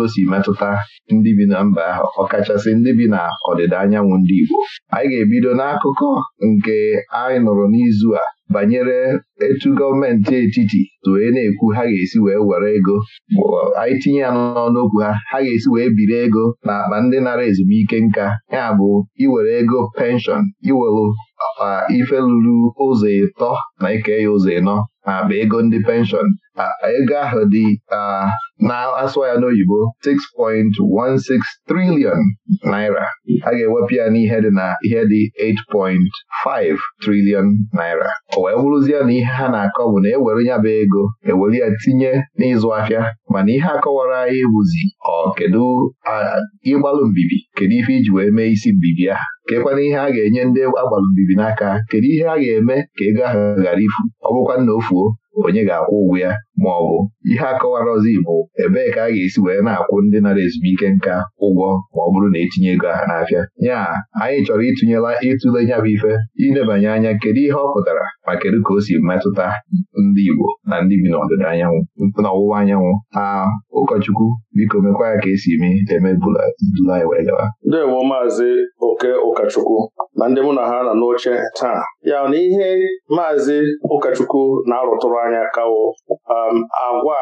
o si metụta ndị bi na mba ahụ ọkachasị ndị bi na ọdịda anyanwụ ndị Igbo anyị ga-ebido n'akụkọ nke anyị nụrụ n'izu a banyere etu gọọmenti etiti tụe na-ekwu ha ga-esi wee were ego anyị tinye ya n'ọnụokwu ha ha ga-esi wee biri ego na akpa ndị nara ezumike nka ya bụ iwere ego penshọn iwere uh, ife lụrụ ụzọ ịtọ na ike ya ụzọ ịnọ akpa ego ndị penshọn ego ahụ dị na-asụ ya n'oyibo 6.16 triliọn naira a ga-ewepụ ya n'ihe dị na ihe dị 8.5 triliọn naira o wee bụrụzie na ihe ha na-akọ bụ na ewere ya bụ ego ewere ya tinye n'ịzụ ahịa mana ihe akọwara anyị bụzi ọ kedu ịgbalụ mbibi kedu ife iji wee mee isi mbibi ya kekwana ihe a ga-enye ndị agbalụ mbibi n'aka kedu ihe a ga-eme ka ego ahụ gara ifu ọ bụkwa nna ofuo onye ga-akwụ ụgwọ ya ma ọ bụ ihe akọwara ọzọ Igbo ebee ka a ga-esi wee na-akwụ ndị nara ezumike nka ụgwọ ma ọ bụrụ na etinye ego ha n'afịa ya anyị chọrọ ịtụnyela ịtụle ya bụ ife ịnebanye anya kedu ihe ọ pụtara ma kedu ka o si metụta ndị Igbo na ndị bi n'ọdịda anyanwụ n'ọwụwa anyanwụ a, ụkọchukwu biko mekwa ya ka esi eme emebula dula anyị wee gawa ndewo maazị oke ụkọchukwu na ndị mụ na ha nọ n'oche taa ya na ihe maazị ụkọchukwu na-arụtụrụ anyị akawo um, agwa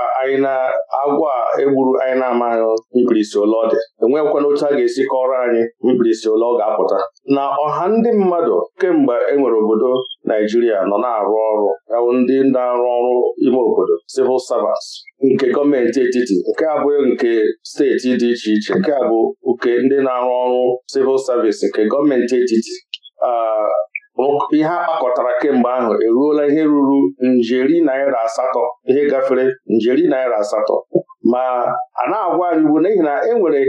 agwa egburu anyị na-amaghị mkpirisi ụlọ ọ dị enweghịkwana otu a ga-esi kọrọ anyị mkpirisi ụlọ ọ ga-apụta na ọha ndị mmadụ kemgbe enwere obodo Naijiria nọ na-arụ ọrụ yawụ ndị na-arụ ọrụ ime obodo civil servants nke gọọmenti etiti nke abụghị nke steeti dị iche iche nke a bụ nke ndị na-arụ ọrụ civil service nke gọọmenti etiti uh, ihe a kpakọtara kemgbe ahụ eruola ihe ruru njeri naira asatọ ihe gafere njeri naira asatọ ma a na-agwa anyị bụ n'ihi na enwere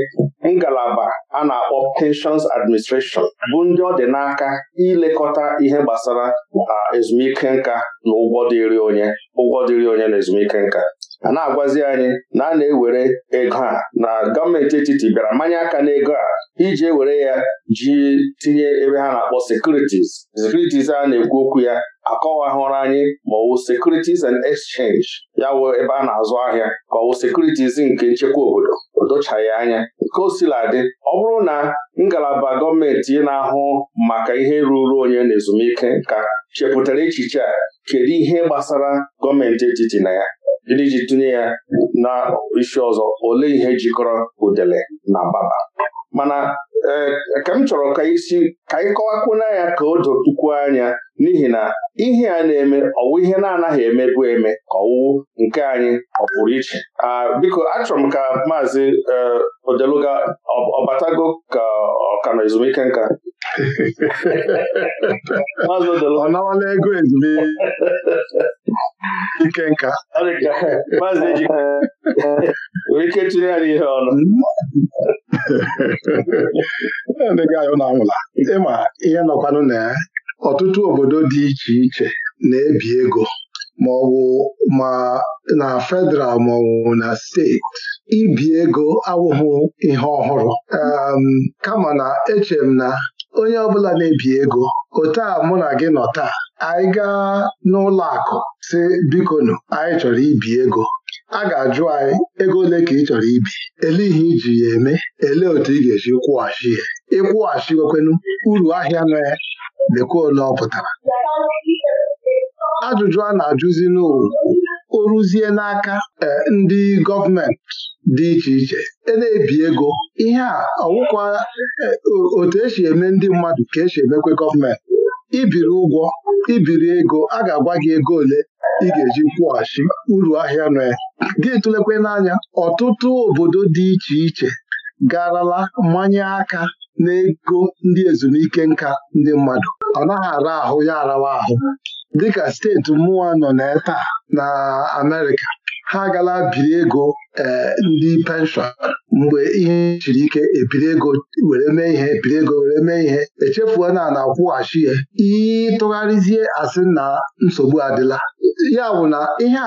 ngalaba a na-akpọ pensions administration bụ ndị ọ dị n'aka ilekọta ihe gbasara ah, ezumike nka na ụgwọ dịrị onye ụgwọ dịrị onye na ezumike nka a na-agwazi anyị na a na-ewere ego a na gọọmenti etiti bịara mmanya aka n'ego a iji were ya ji tinye ebe ha na-akpọ sekuritis: sekuritis a na-ekwu okwu ya akọwahụrụ anyị ma ọwụ securities and exchange ya wụ ebe a na-azụ ahịa ka ọwụ sekuritiz nke nchekwa obodo o anya nke osiladị ọ bụrụ na ngalaba gọọmenti na-ahụ maka ihe ruru onye na ezumike ka chepụtara echiche a kedu ihe gbasara gọọmenti etiti na ya ndị ji tụnye ya na isi ọzọ olee ihe jikọrọ udele na baba mana e, ka m chọrọ ka isi ka anyị kọwakwuna ya ka o dotukwuo anya n'ihi na ihe a na-eme ọwụ ihe na-anaghị emebu eme ka nke anyị ọ pụrụ iche biko achọrọ m ka maazị e, odeluga ọbatago ka ọ ka ezumike nka ọ nawala ego ezumike ike nka ike tinye ya ihe ọnụ ndị gaayọ na-anwụla ịma ihe nọkwanụ na ya ọtụtụ obodo dị iche iche na-ebi ego ma ọ bụ ma na federal ma ọ bụ na steeti ibi ego awụghị ihe ọhụrụ kama na eche m na onye ọbụla na-ebi ego ụtọ a mụ na gị nọ taa anyị gaa n'ụlọ akụ si bikonu anyị chọrọ ibi ego a ga-ajụ anyị ego ole ka ị chọrọ ibi ele ihe iji ya eme elee otu ị ga-eji kwụghachi ya ịkwụghachi wekwenu uru ahịa nọ ya lekwa ole ọ pụtara ajụjụ a na-ajụzi n'owu o ruzie n'aka eh, ndị gọọmenti dị iche iche e na-ebi ego ihe a ọwụkwa eh, otu esi eme ndị mmadụ ka esi emekwe gọọmenti ibiri ụgwọ ibiri ego a ga-agwa gị ego ole ị ga-eji kwụghachi uru ahịa nọ ya gị tụlekwe n'anya ọtụtụ obodo dị iche iche garala mmanye aka n'ego ndị ezumike nka ndị mmadụ ọ naghị ara ahụ ya arawa ahụ dịka steeti mmụọ nọ na eta na Amerịka ha agala biri ego eh, ndị penshọn mgbe ihe siri ike ebiri ego were mee ihe ebiri ego were mee ihe echefuo na na-akwụghachi ya ịtụgharịzie asị na nsogbu adịla ya bụ na ihe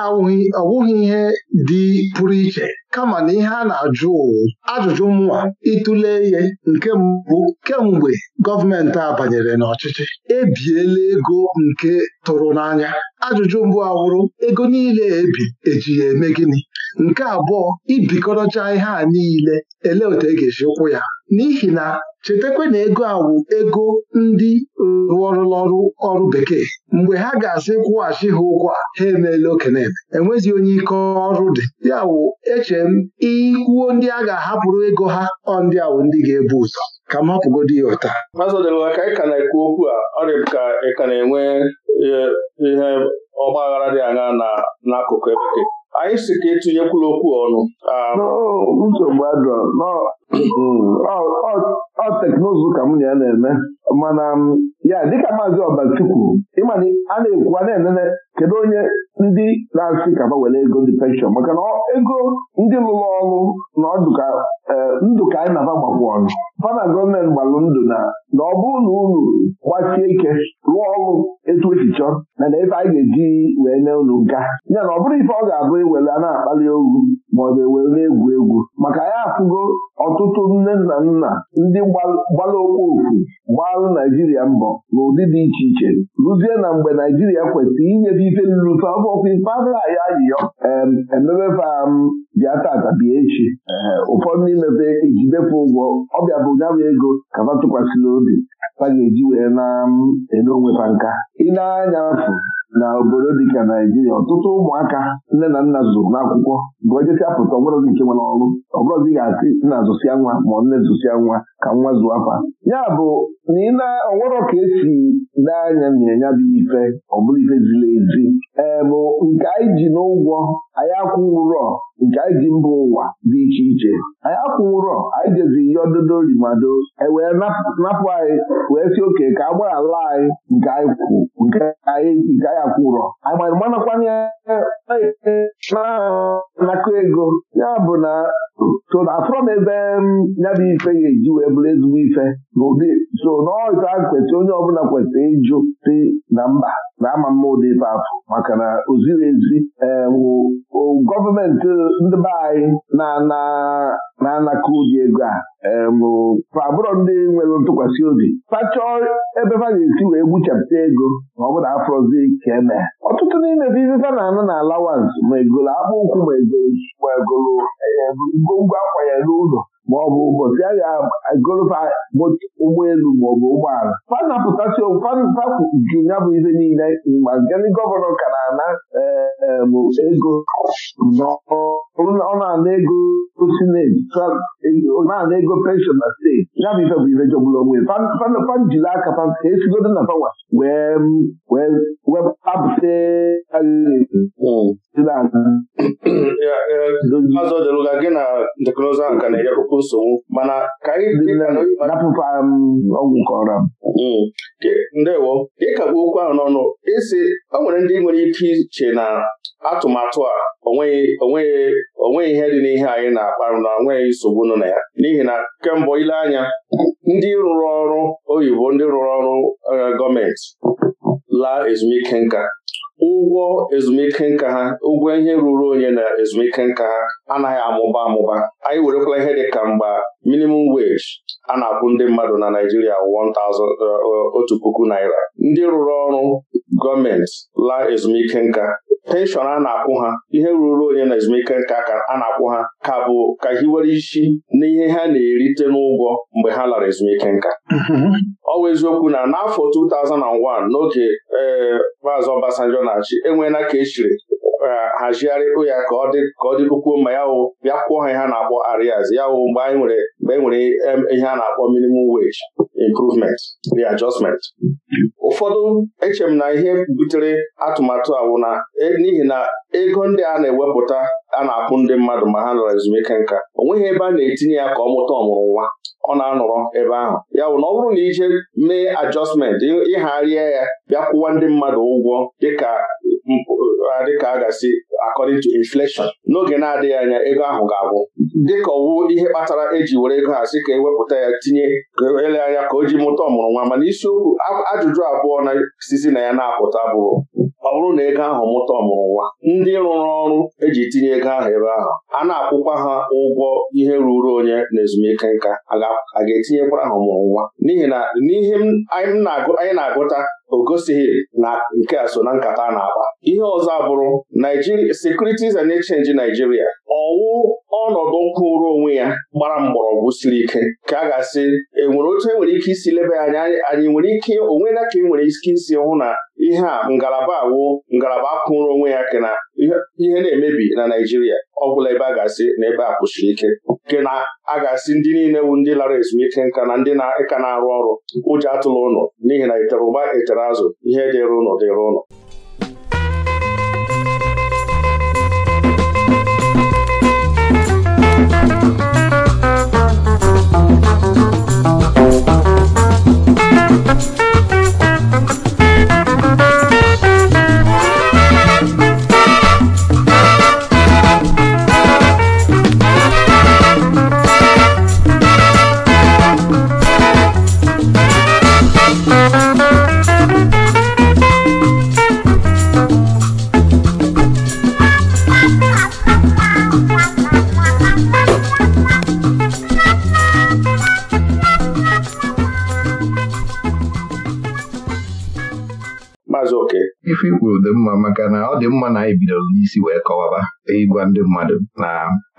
ọwụghị ihe dị pụrụ iche kama na ihe a na-ajụ ụwụ ajụjụ mụnwa ịtụle ihe nke mbụ kemgbe gọọmenti a banyere n'ọchịchị ebiela ego nke tụrụ n'anya ajụjụ mbụ awụrụ ego niile ebi eji ya eme gịnị nke abụọ ibikọrọcha ihe a niile ele otu e ga-esi ụkwụ ya n'ihi na chetakwa na ego awụ ego ndị rụọrụlọrụ ọrụ bekee mgbe ha ga-asị kwụghachi ha ụgwọ a ha emeela okeneme enwezi onye ike ọrụ dị ya wụ eche m ikwuo ndị a ga-ahapụrụ ego ha ọ ndị awụ ndị ga-ebu ụzọ ka m hapụgodo ya ụta ka ị ka na-ekwu okwu a ọrịa ka ị ka na-enwe e, ihe ọgbaghara dị anya n'akụkụ ebe anyị si ka etinyekwula okwu ọnụ um, nsogbu adọ mm, ọ teknụzụ ka m na ya na-eme mana ya dịka maazị ọbachukwu ịmana a na-ekwu a na kedu onye ndị na-asị ka were ego ndị penshọn maka na ego ndị lụrụ ọrụ na e, ndụ ka anyị na-aba gbakwu ọnụ Fana na gọọmenti gbalụ ndụ na na ọ bụrụ na unu gbasie ike rụọ ọrụ etu esi na na ebe anyị ga-eji wee nye unu nka ya na ọ bụrụ ife ọ ga-abụ iwere a na-akpali ogu maọbụ na egwu egwu maka ya afụgo ọtụtụ nne na nna ndị gbara ofu gbalụ Naijiria mbọ n'ụdị dị iche iche Rụzie na mgbe Naijiria kwesịrị inyefe ife nrute ọbọkwa ifeaaya ayịyọ emebefa m bịa tata echi ụfọdụ imepe ejidefe ụgwọ ọbịa bụ nyabụ ego kaba tụkwasịrị obi ka ga-eji wee na-ede onwefa nka ị na-anya afụ na obodo dịka Naijiria ọtụtụ ụmụaka nne na nna zụrụ n'akwụkwọ gụọ jesia pụta dị nke nwere ọrụ ọbụrụzi ga-asị nna zụsịa nwa ma nne zụsịa nwa ka nwa zụọ afa ya bụ na ị na ka esi lee anya na ya dị ife ọ bụrụ ife ziri ezi bụ nke anyị ji n'ụgwọ anyị akwụ ụrọ nke anyị ji mba ụwa dị iche iche anyị akwụ ụrọ anyị jezi ihe ododo rimado ewee napụ anyị wee si oke ka a gbaghara anyị nke anyị kwụ nke anyị akwụ ụrọ anyị manakwanye na-anakọ ego ya bụ na so na afọ m ebe ya bụ ife ga-eji wee bụrụ ezigbo ife so n'ọzọ kwesịrị onye ọbụla kwesịrị ịjụ si na mba na-ama mma ụdị ife afọ maka na o ezi ehm, gọọmenti ndị be anyị na-anaka ụdị ego a ewu ehm, abụrọ ndị nwere ntụkwasị obi pachọọ ebe ha ga-esi wee gbuchapụta ego ma ọ na afọzi ka eme ọtụtụ n'ime bụ ife na-anụ na alawans ma egolo akpụ ụkwụ ma egolo ehm, ngwongwo akwa ya n'ụlọ ma ọ bụ ụbọchị a ga ma ọ bụ ụgbọala fanapụtasị fanpapụ ji ya bụ ihe niile ma gani gọvanọ ka na-ana ego ọ na-ana ego sineti na-ana ego penshọn na steeti ya bụ ife bụ ife jọgburu onwe fanjili aka fa ka esigodo na fawa wee wee wepụta Maazị gị na teknụzụ ahụ ka na-enyekwa nsogbu mana ka ndewo ka okwu ahụ n'ọnụ isi o nwere ndị nwere ike iche na atụmatụ a onweghị ihe dị n'ihe anyị na-akpa na onweghị nsogbu nọ na ya n'ihi na kemgbe ile anya ndị rụrụ ọrụ oyibo ndị rụrụ ọrụ gọọmenti laa ezumike nka ụgwọ ezumike nka ha ụgwọ ihe ruru onye na ezumike nka ha anaghị amụba amụba anyị werekwala ihe dị ka mgba minimum wage a na-akwụ ndị mmadụ na Naịjirịa 1000 eh, eh, otu puku naira ndị rụrụ ọrụ gọọmenti laa ezumike nka penshọn a na-akwụ ha ihe ruru onye na ezumike nka ka a na-akwụ ha ka bụ ka hiwere isi na ihe ha na-erite n'ụgwọ mgbe ha lara ezumike nka mm-hmm. ọ bụ eziokwu na n'afọ 2001 n'oge ee eh, maazị Obasanjo na-achị enweela ka e chiri Eh, hazigharịkpụ ya ka ọ dịkwuo ma ya wụ bịa kwụọ ha ihe a na-akpọ arias ya wụ mgbe anyị nwere mgbe e nwere ihe a na-akpọ minimum wage improvement readjustment ụfọdụ eche m na ihe butere atụmatụ a wụ na e, n'ihi na ego ndị a na-ewepụta a na-akwụ ndị mmadụ ma ha nọrọ ezumike nka o nweghị ebe a na-etinye ya ka ọ mụta ọmụrụ nwa ọ na-anọrọ ebe ahụ ya bụ na ọ bụrụ na ije mee ajọstmentị ịgharịa ya bịa kwụwa ndị mmadụ ụgwọ dịka Uh, dịka a ga-asị according to inflation n'oge na-adịghị anya ego ahụ ga-abụ dịka ọwụ ihe kpatara eji were ego ha sị ka ewepụta ya tinye e ele anya ka o ji mụta ọmụrụ nwa mana isiokwu ajụjụ abụọ na-esisi na ya na-apụta bụrụ ọ bụrụ na ego ahụ mụta ọmụrụ nwa ndị rụrụ ọrụ eji tinye ego ahụ ebe ahụ a na-akwụkwa ha ụgwọ ihe ruru onye na ezumike nka a ga-etinyekwara ha ọmụrụ nwa n'ihi na n'ihe anyị na-agụta o gosighị na nke a so na nkata a na-akpa ihe ọzọ abụrụ Securities and Exchange Nigeria ọwụ ọnọdụ kwụrụ onwe ya gbara mgbọrọgwụ siri ike ka a ga-asị enwere otu enwere ike isi leba ya anya anyị nwere ike onwe na ka e nwere ike isi hụ na ihe a ngalaba awụ ngalaba kwụrụ onwe ya kena ihe na-emebi na Naijiria ọ bụla ebe a ga-asị na ebe a kwụsịrị ike nke na a ga-asị ndị niile wu ndị lara ezumike nka na ndị na-ịka na-arụ ọrụ ụjọ atụla ụlọ n'ihi na itere ụgba etere azụ ihe dịrị ụlọ dịrị ụlọ ife ikwuru dị mma maka na ọ dị mma na anyị bidoro n'isi wee kọwaba ịgwa ndị mmadụ na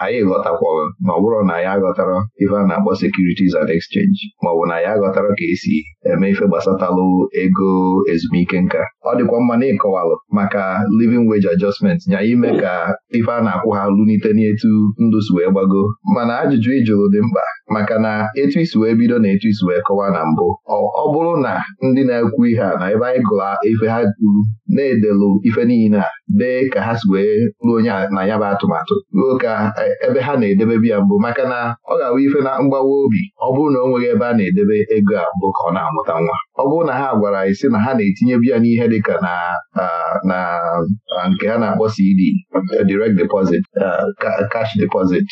anyị ghọtakwara ma ọ bụrụ na ya aghọtara ife a na-akpọ securities and exchange ma ọ bụ na ya aghọtara ka esi eme ife gbasatalụ ego ezumike nka ọ dịkwa mma na ịkọwalụ maka living wage adjustment nya ime ka ife a na-akwụ ha lunite n'etu ndụ si wee gbago mana ajụjụ ịjụrụ dị mkpa maka na etu isi wee bido na etu isi wee kọwa na mbụ ọ bụrụ na ndị na-ekwu ihe a na ebe anyị gụrụ ife ha kwuru na-edelụ ife niile a dee ka ha si wee ruo onye na ya bụ atụmatụ ruo ka e, ebe ha na-edebe biya mbụ maka na ọ ga-awụ ife na mgbawa obi ọ bụrụ na o nweghị ebe a na-edebe ego a mbụ ka ọ na-amụta nwa ọ bụrụ na ha gwara anyị sị na ha na-etinye biya n'ihe dịka na na nke ha na-akpọ CD e direct deposit cash deposit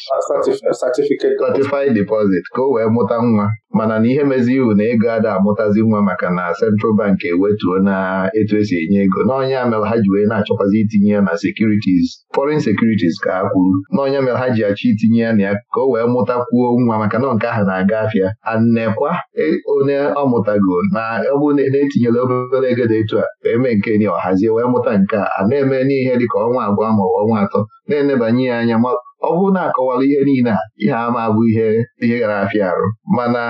certified deposit ka o wee mụta nwa mana na ihe mezi iwu na ego ada amụtazi nwa maka na Central Bank ewetuo na etu esi enye ego n'ọnya mere ha ji wee na-achọkwazi itinye ya na sekuritis foreign securities ka ha kwuru n'ọnya mere ha ji achọ itinye ya na ya ka o wee mụtakwuo nwa maka na nke ahụ na-aga afịa annekwa e, onye ọ mụtago na ọ bụrụ na etinyere obere ego dị etu a wee mee nke ni ọhazie wee mụta nke a na-eme n'ihe dịka ọnwa abụọ ma ọnwa atọ na-enebanye ya anya ọ bụrụ na akọwala ihe niile a ihe ama bụ ihe ihe gara afịa arụ mana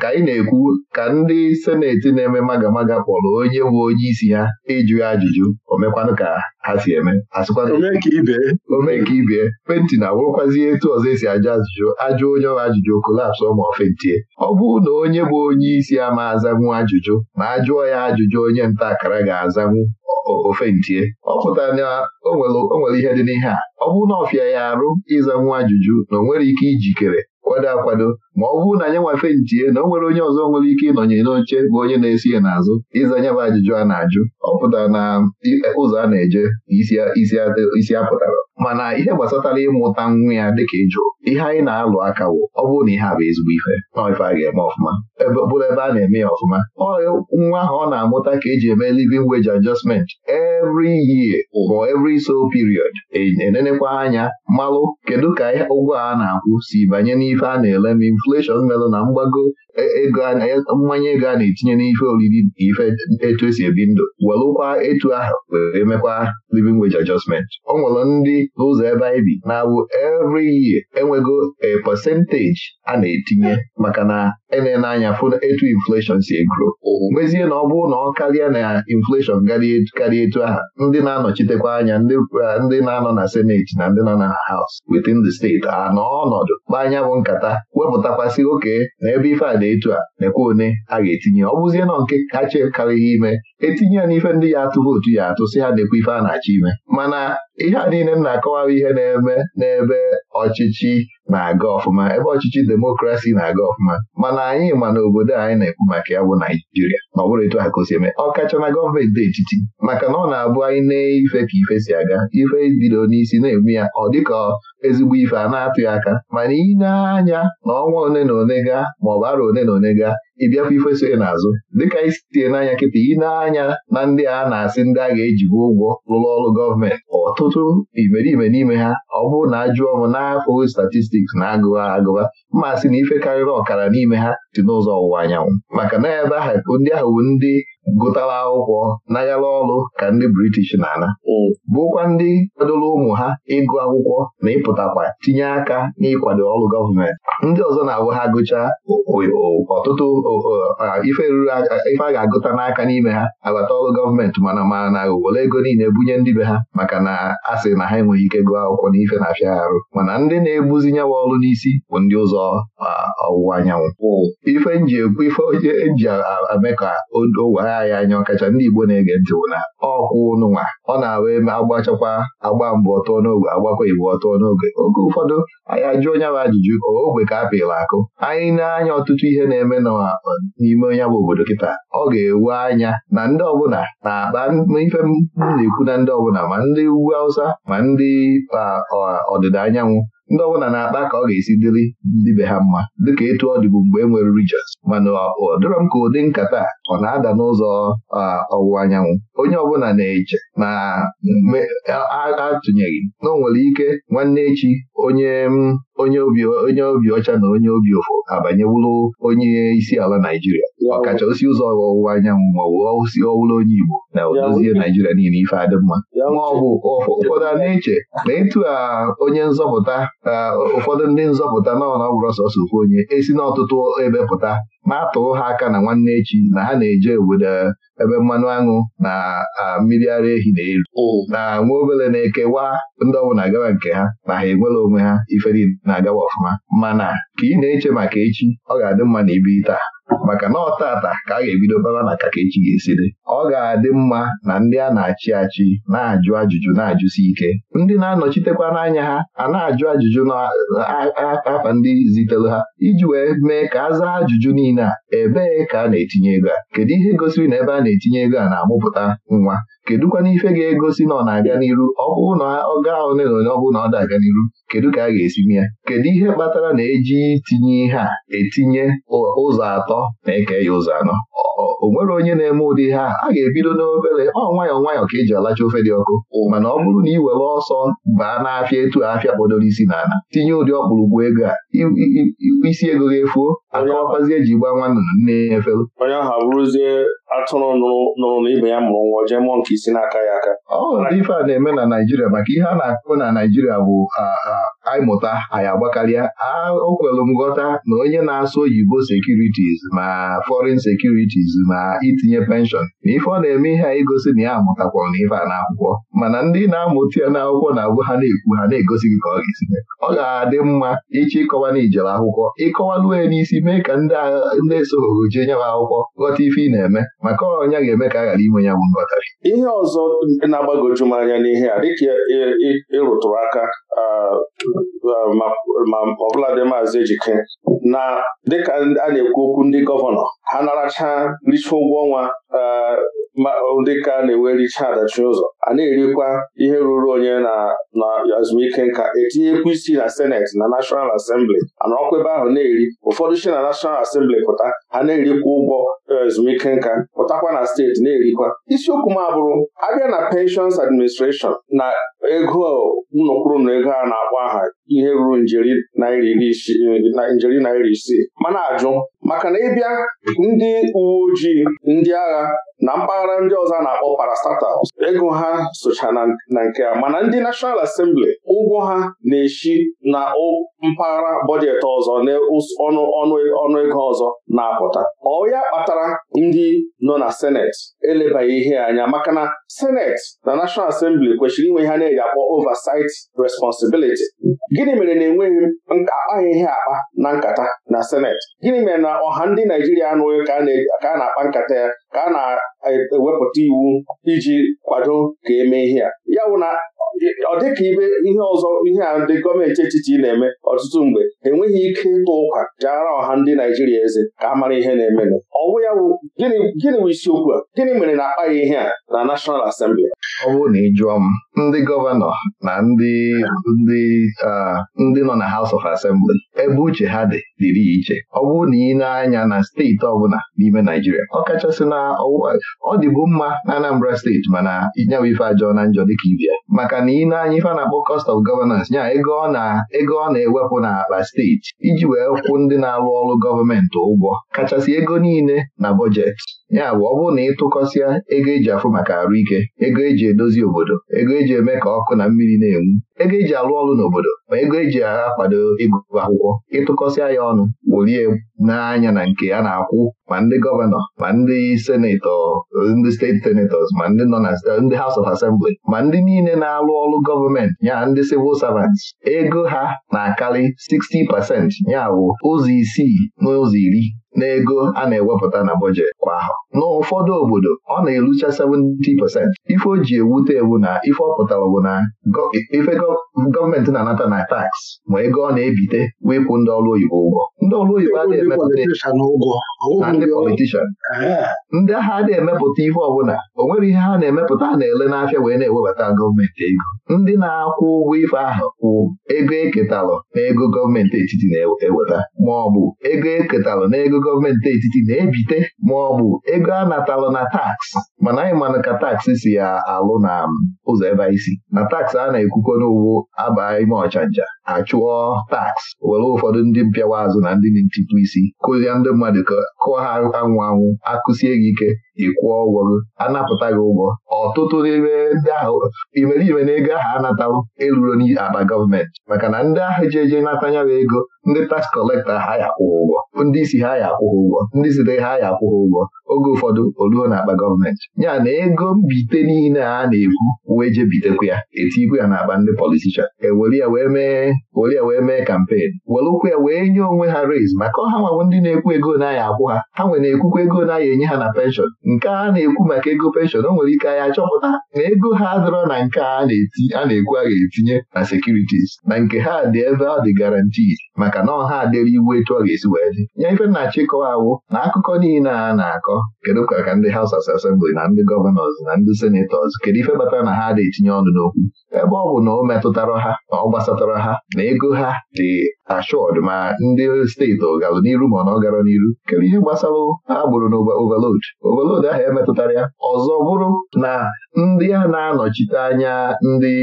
ka anyị na-ekwu ka ndị seneti na-eme magamaga maga kpọrọ onye bụ onye isi ha ịjụ ajụjụ o mekwanụ ka ha si eme omeka ibie penti na awụrụkwazi etu ọzọ esi ajụ ajụjụ ajụ onye ọha ajụjụ kolapsụ ma ọ fentie ọ bụrụ na onye bụ onye isi ama azanwu ajụjụ ma ajụọ ya ajụjụ onye nta akara ga-azanwu ofentie ọ pụtara na o nwere ihe dị n'ihe a ọ bụrụ na ọfịa ya arụ ịzanwu ajụjụ na o nwere ike ijikere kwado akwado ma ọ bụrụ na anyị nwafe ntie na o nwere onye ọzọ nwere ike ịnọnye n'oche bụ onye na-esi ya n'azụ ịza anya bụ ajụjụ a na-ajụ ọ pụtara na ụzọ a na-eje isi apụtara mana ihe gbasatara ịmụta nwa ya dịka ịjụ ihe anyị na-alụ aka ọ bụrụ na ihe a bụ ezigbo ife ife a ga-eme ọfụma bụrụ ebe a na-eme ya ọfụma nwa ahụ ọ na-amụta ka eji eme living wage adjustment every year or every so period e, enenekwa anya malụ kedu ka ụgwọ a na-akwụ si banye n'ife a na-ele m inflation melụ na mgbago mmanya ego a na-etinye n'ife oriri na ife etu esi ebi ndụ welụkwa etu ahụ were mekwa living wage adjustment ọ nwere ndị ụzọ ebe anyị bi na abụ every year enwego a percentage a na-etinye maka na enene anya fụ etu infleshọn si egro mezie na ọ bụrụ na ọ karịa na infleshọn karịa e, etu aha ndị na-anọchitekwa anya ndị na-anọ na seneti na ndị nọ na haus within the steeti a nọ ọnọdụ kpaa anya bụ nkata wepụtakwasị oke na ebe ife a dị etu a nekwa one a ga-etinye ọ bụzie na nke kacha karịghị ime etinye ya n'ife ndị ya atụ vootu ya atụ si ha nekwa ife a na-achọ ime mana ihe a niile m na-akọwara ihe na-eme n'ebe ọchịchị na-aga ọfụma ebe ọchịchị demokrasi na-aga ọfụma mana anyị ma na obodo anyị na-ekwu maka ya bụ Naijiria ma ọ bụrụ etu ha ka ọ eme na gọọmenti dị etiti maka na ọ na-abụ anyị na ife ka ife si aga ife bido n'isi na-eme ya ọ dịka ezigbo ife a na-atụ aka mana ị na-anya na ọnwa one na one gaa ma ọbara one na one gaa ịbịakwa ife so n'azụ dịka isitie n'anya kịta ị na-anya na ndị a na-asị ndị a ga-ejibu ụgwọ rụrụ ọrụ gọọmenti ọtụtụ imerime n'ime ha ọ bụrụ na ajụọ m n'afọ statistiks na agụwa agụwa Mma sị na ife karịrị ọkara n'ime ha dị n'ụzọ ọwụwa anyanwụ maka na ebe ahụ ndị ahụ bụ ndị gụtara akwụkwọ nagara ọrụ ka ndị british na-ana bụkwa ndị kwadoro ụmụ ha ịgụ akwụkwọ na ịpụtakwa tinye aka n'ịkwado ọrụ gọọmenti ndị ọzọ na-abụ ha gụchaa ọtụtụ ife ruru ife a ga-agụta n'aka n'ime ha agbata ọrụ gọọmenti mana ma na were ego niile bunye ndị be ha maka na a sị na ha enweghị ike gụọ akwụkwọ na ife na-afịa arụ mana ndị na-ebuzi ọrụ n'isi bụ ndị ụzọ ụzọ ọwụwa anyanwụ ife nji ekwu ife onye nji e eme ka odo anyị anya ọkacha ndị Igbo na-ege ntị bụ na ọkwụ ụnụnwa ọ na-awa eme agbachakwa agba mbụ ọtọ n'oge agbakwa igbo ọtọ n'oge oge ụfọdụ anyị ajụ onye bụ ajụjụ ogwe ka a pịrị akụ anyị na-anya ọtụtụ ihe na-eme n'ime onye bụ obodo kịta ọ ga-ewe anya na ndị ọbụla na-akpa ife m na-ekwu na ndị ọbụla ma ndị ugwu Hausa ma ndị ọdịda anyanwụ ndị ọbụla na-akpa ka ọ ga-esi dịrị ndị be ha mma dịka etu ọ dịbụ mgbe e nwere regions mana ọ dịrọ m ka ụdị nkata ọ na-ada n'ụzọ ọwụwa anyanwụ onye ọbụla na-eche na atụnyeghị na ọ nwere ike nwanne echi onye onye obi ọcha na onye obi ụfụ abanyewuru onye isi ala Naijiria osi ụzọ ọwụwa anyanwụ ma maọbụ si ọwụlụ onye Igbo na dozie Naijiria niile ife adịmma Nwa ma ọ bụ ụfọdụ a na-eche na ịtụ onye nzọpụta ụfọdụ ndị nzọpụta na ọbụrụ sọsọ ofu onye esi n'ọtụtụ ebe pụta na-atụrụ ha aka na nwanne echi na ha na-eje obodo eh, ebe mmanụ aṅụ na mmiri ara ehi na-eru na nwa obele na-ekewa ndị ọbụla gawa nke ha na ha enwere onwe ha iferi na-agawa ọfụma mana ka ị na-eche maka echi ọ ga-adị mma na ibiri taa maka na ọ ka a ga-ebido bara na kaka echi ga-esi dị ọ ga-adị mma na ndị a na-achị achị na-ajụ ajụjụ na-ajụsi ike ndị na-anọchitekwa n'anya ha a na-ajụ ajụjụ na-akpa ndị zitere ha iji wee mee ka a zaa ajụjụ niile n'ihi na ebee ka a na-etinye ego a kedu ihe gosiri na ebe a na-etinye ego a na-amụpụta nwa kedụkwana ife ga-egosi na ọ na-abịa n'iru ọ bụrụ na ọ gaa ole na ole ọ bụrụ na ọ dị abịa n'iru kedu ka a ga-esi mee ya kedu ihe kpatara na eji itinye ihe a etinye ụzọ atọ na-eke ya ụzọ anọ o nwere onye na-eme ụdị ihe a ga-ebido n'obere ọ nwayọọ nwayọọ ka eji alacha ofe dị ọkụ mana ọ bụrụ na ị were ọsọ baa n'afịa etu afịa kpọdoro isi n'ala tinye ụdị ọkpụrụkpụ ego a isi ego ga-efuo akọwakwazi eji gba nwanne nne efelu atụrụ nụrụ na ibe ya mụrụ nwa jee mụọ nke isi n'aka ya aka ọ ndị ife a na-eme na Naịjirịa maka ihe a na-akụ na Naịjirịa bụ anyị mụta anyị agbakarịa o kwelụ m ghọta na onye na-asụ oyibo sekuritis ma foreign sekuritiz ma itinye penshọn na ife ọ na-eme ihe a igosi na ya amụtakwara na ife a akwụkwọ mana ndị na-amụta ya n'akwụkwọ na-abụ ha na-ekwu ha na-egosi gị ka ọ ga-esi ọ ga-adị mma ịchọ ịkọwa na ijere akwụkwọ ịkọwalụ ya n'isi mee ka ndị esoghoro jee nyawa akwụkwọ ghọta ife ị na-eme maka ọnya ga-eme ka a ghara inwe ya bụ nghọtara ihe ọzọ na-agbagoju m anya n'ihe a dịka ịrụtụrụ aka ma ọbụladị maazị Ejike na dịka a na-ekwu okwu ndị gọvanọ ha naracha richa ụgwọ ọnwa eh, dịka a na-ewe richa adachi ụzọ a na-erikwa ihe ruru onye na na azụmike nka etinyekwu isi na seneti na nashọnal asembli ana ọkwa ebe ahụ na-eri ụfọdụ si na nashọnal asembli pụta ha na-erikwa ụgwọ ezumike eh, nka pụtakwa na steeti na-erikwa isiokwu m abụrụ abịa na penshons administreshọn na ego unu na ego a na-akpọ aha ihe ruru njeri naira isii mana ajụ maka na ịbịa ndị uwe ojii ndị agha na mpaghara ndị ọzọ na-akpọ parastatals ego ha socha na nke a mana ndị National asembli ụgwọ ha na-eshi na mpaghara bọjetị ọzọ na ọnụ ego ọzọ na-apụta ọ ya kpatara ndị nọ na Senet. elebaghị ihe anya maka na senet na National Assembly kwesịrị inwe ha na-eji akpọ oversight responsibility gịnị mere na enweghị akpaghị ihe akpa na nkata na senet? gịnị mere na ọha ndị Naijiria anụghị ka a na-akpa nkata ya ka a na-ewepụta e, iwu iji kwado ka eme ihe a ya wụ na ọ ka ibe ihe ọzọ ihe a ndị gọọmenti etiti na-eme ọtụtụ mgbe enweghị ike ịtụ ụkwa jara ọha ndị Naijiria eze ka a mara ihe na-emenụ ọwụ ya bụ gịnị bụ isiokwu a gịnị mere na akpaghị ihe a na National Assembly ọ bụrụ na ị jụọ m ndị gọvanọ na ndị ndị ndị nọ na House of Assembly ebe uche ha dị dịrị iche ọ bụrụ na ị na-anya na steeti ọbụla n'ime Naijiria ọ kachasị na ọ dịbu mma na Anambra steeti mana nyawa ife ajọọ na njọ dịka ibia maka na ị na-anya ife a na-akpọ cost of governance nya ego ọ na-ewepụ n'akpa steeti iji wee kwụ ndị na-arụ ọrụ gọọmenti ụgwọ kachasị ego niile na bọjetị ya bụ ọ bụrụ na ịtụkọsịa ego eji afụ maka arụike ego eji eji edozi obodo ego eji eme ka ọkụ na mmiri na-enwu ego eji alụ ọrụ n'obodo ma ego eji agha akwado ịgụ akwụkwọ ịtụkọsịa ya ọnụ wulie n'anya na nke a na-akwụ ma ndị gọvanọ ma ndị senetọ ndị steeti senetọs ma ndị nọ na ndị House of Assembly ma ndị niile na-alụ ọrụ gọọmenti ya ndị civil servants ego ha na-akarị 60 pasent ya bụ ụzọ isii na ụzọ iri n'ego a na-ewepụta na bọjet kwa ahụ n'ụfọdụ obodo ọ na-erucha 70 pasent ife o ji ewute ewu na ife ọ pụtara bụ na ife gọọmenti na-anata na tax ma ego ọ na-ebite wee kwụ ndị ọrụ oyibo ụgwọ ndị ọrụ oyibo adịghị emepụta ndị politishan ndị agha adịghị emepụta ihe ọbụla o nwere ihe ha na-emepụta na-ele n'afịa wee na-ewebata gọọmenti ego ndị na-akwụ ụgwọ ife ahụ kwụ ego eketalụ na ego gọọmenti etiti na-eweta ma ọ bụ ego eketalụ na ego gọọmenti etiti na-ebite ma ọ bụ ego a natalụ na taksị mana anyị manụ ka taksị si ya alụ na um, ụzọ ebe anyị si na taksị a na-ekwukọ n'ụwa wụ abaa ime ọchanja achụọ taks were ụfọdụ ndị mpịawa azụ na ndị ntịtụ isi kụzie ndị mmadụ kụọ ha anwụ anwụ akụsie gị ike ịkwụọ ụgwọ gị anapụta gị ụgwọ ọtụtụ n'ime ndị ahụ imeriime na ego ahụ anatawo eruro n'akpa gọọmenti maka na ndị ahụ ji eje nata ego ndị tax kọlekta ha ya akwụghị ụgwọ ndị isi ha ya akwụghị ụgwọ ndị site ha ya akwụghị ụgwọ oge ụfọdụ oluo na-akpa gọọmenti ya na ego mbite niile a na-ekwu wee je bitekwa ya etikwu ya n'akpa ndị politishan ewere ya wee mee were ya wee mee kampen ya wee nye onwe ha rez maka ọha nwawo ndị na-ekwu ego na akwụ ha ha nwere na-ekwukwa ego na enye ha na penshọn nke a na-ekwu maka ego penshọn o nwere ike anyị chọpụta na ego ha dọrọ na nke a na-ekwu a ga-etinye na sekuritis na nke ha dị ebe ọ dị garanti maka na ọha adịrị iwu etu ọ ga-esi wee dị Nye ife nna chịkọwawụ na akụkọ niile a na-akọ kedu ka ka ndị haus of Assembly na ndị gọvanọs na ndị senetọs kedu ife batara na ha na-etinye ọnụ n'okwu ebe ọ bụ na o metụtara ha na ọ gbasatara ha na ego ha dị ashọd ma ndị steeti ọgalụ n'iru ma ọ na ọ n'iru kedu ihe gbasara gburu na overload overload obodo ahụ emetụtara ya ọzọ bụrụ na ndị a na-anọchite anya ndị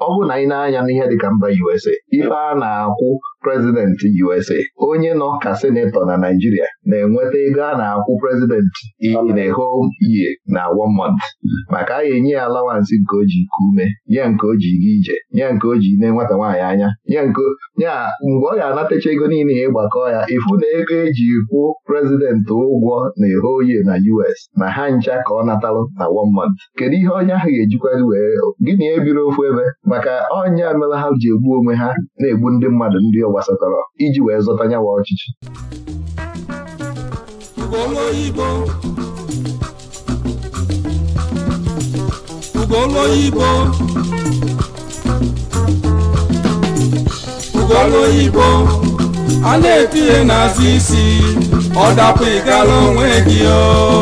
ọ bụrụ na anyị na-anya n'ihe dịka mba USA ife a na-akwụ prezidenti USA onye nọ ka senetọ na Naijiria na-enweta ego a na-akwụ prezidenti in na whole year na one month maka a ga-enye ya alawansị nke o ji ike ume nye nke o ji ga ije ya nke o ji ne nwata nwaanyị anya nye nke ya mgbe ọ ga-anatacha ego niile ya ịgbakọ ya ifu na ego eji kwụ prezidenti ụgwọ na eho whole na US na ha ncha ka ọ natalụ na one month kedu ihe onye ahụ ga-ejikwari wee gịnị ebiri ofu ebe maka ọnya mere ha ji egbu onwe ha na-egbu ndị mmadụ ndị ọgwụ gbasatara iji wee zọta nyawa ọchịchị ugolu oyibo ugolu oyibo a na-etinye n'azụ isi ọ dapụ ịgala onwe gị o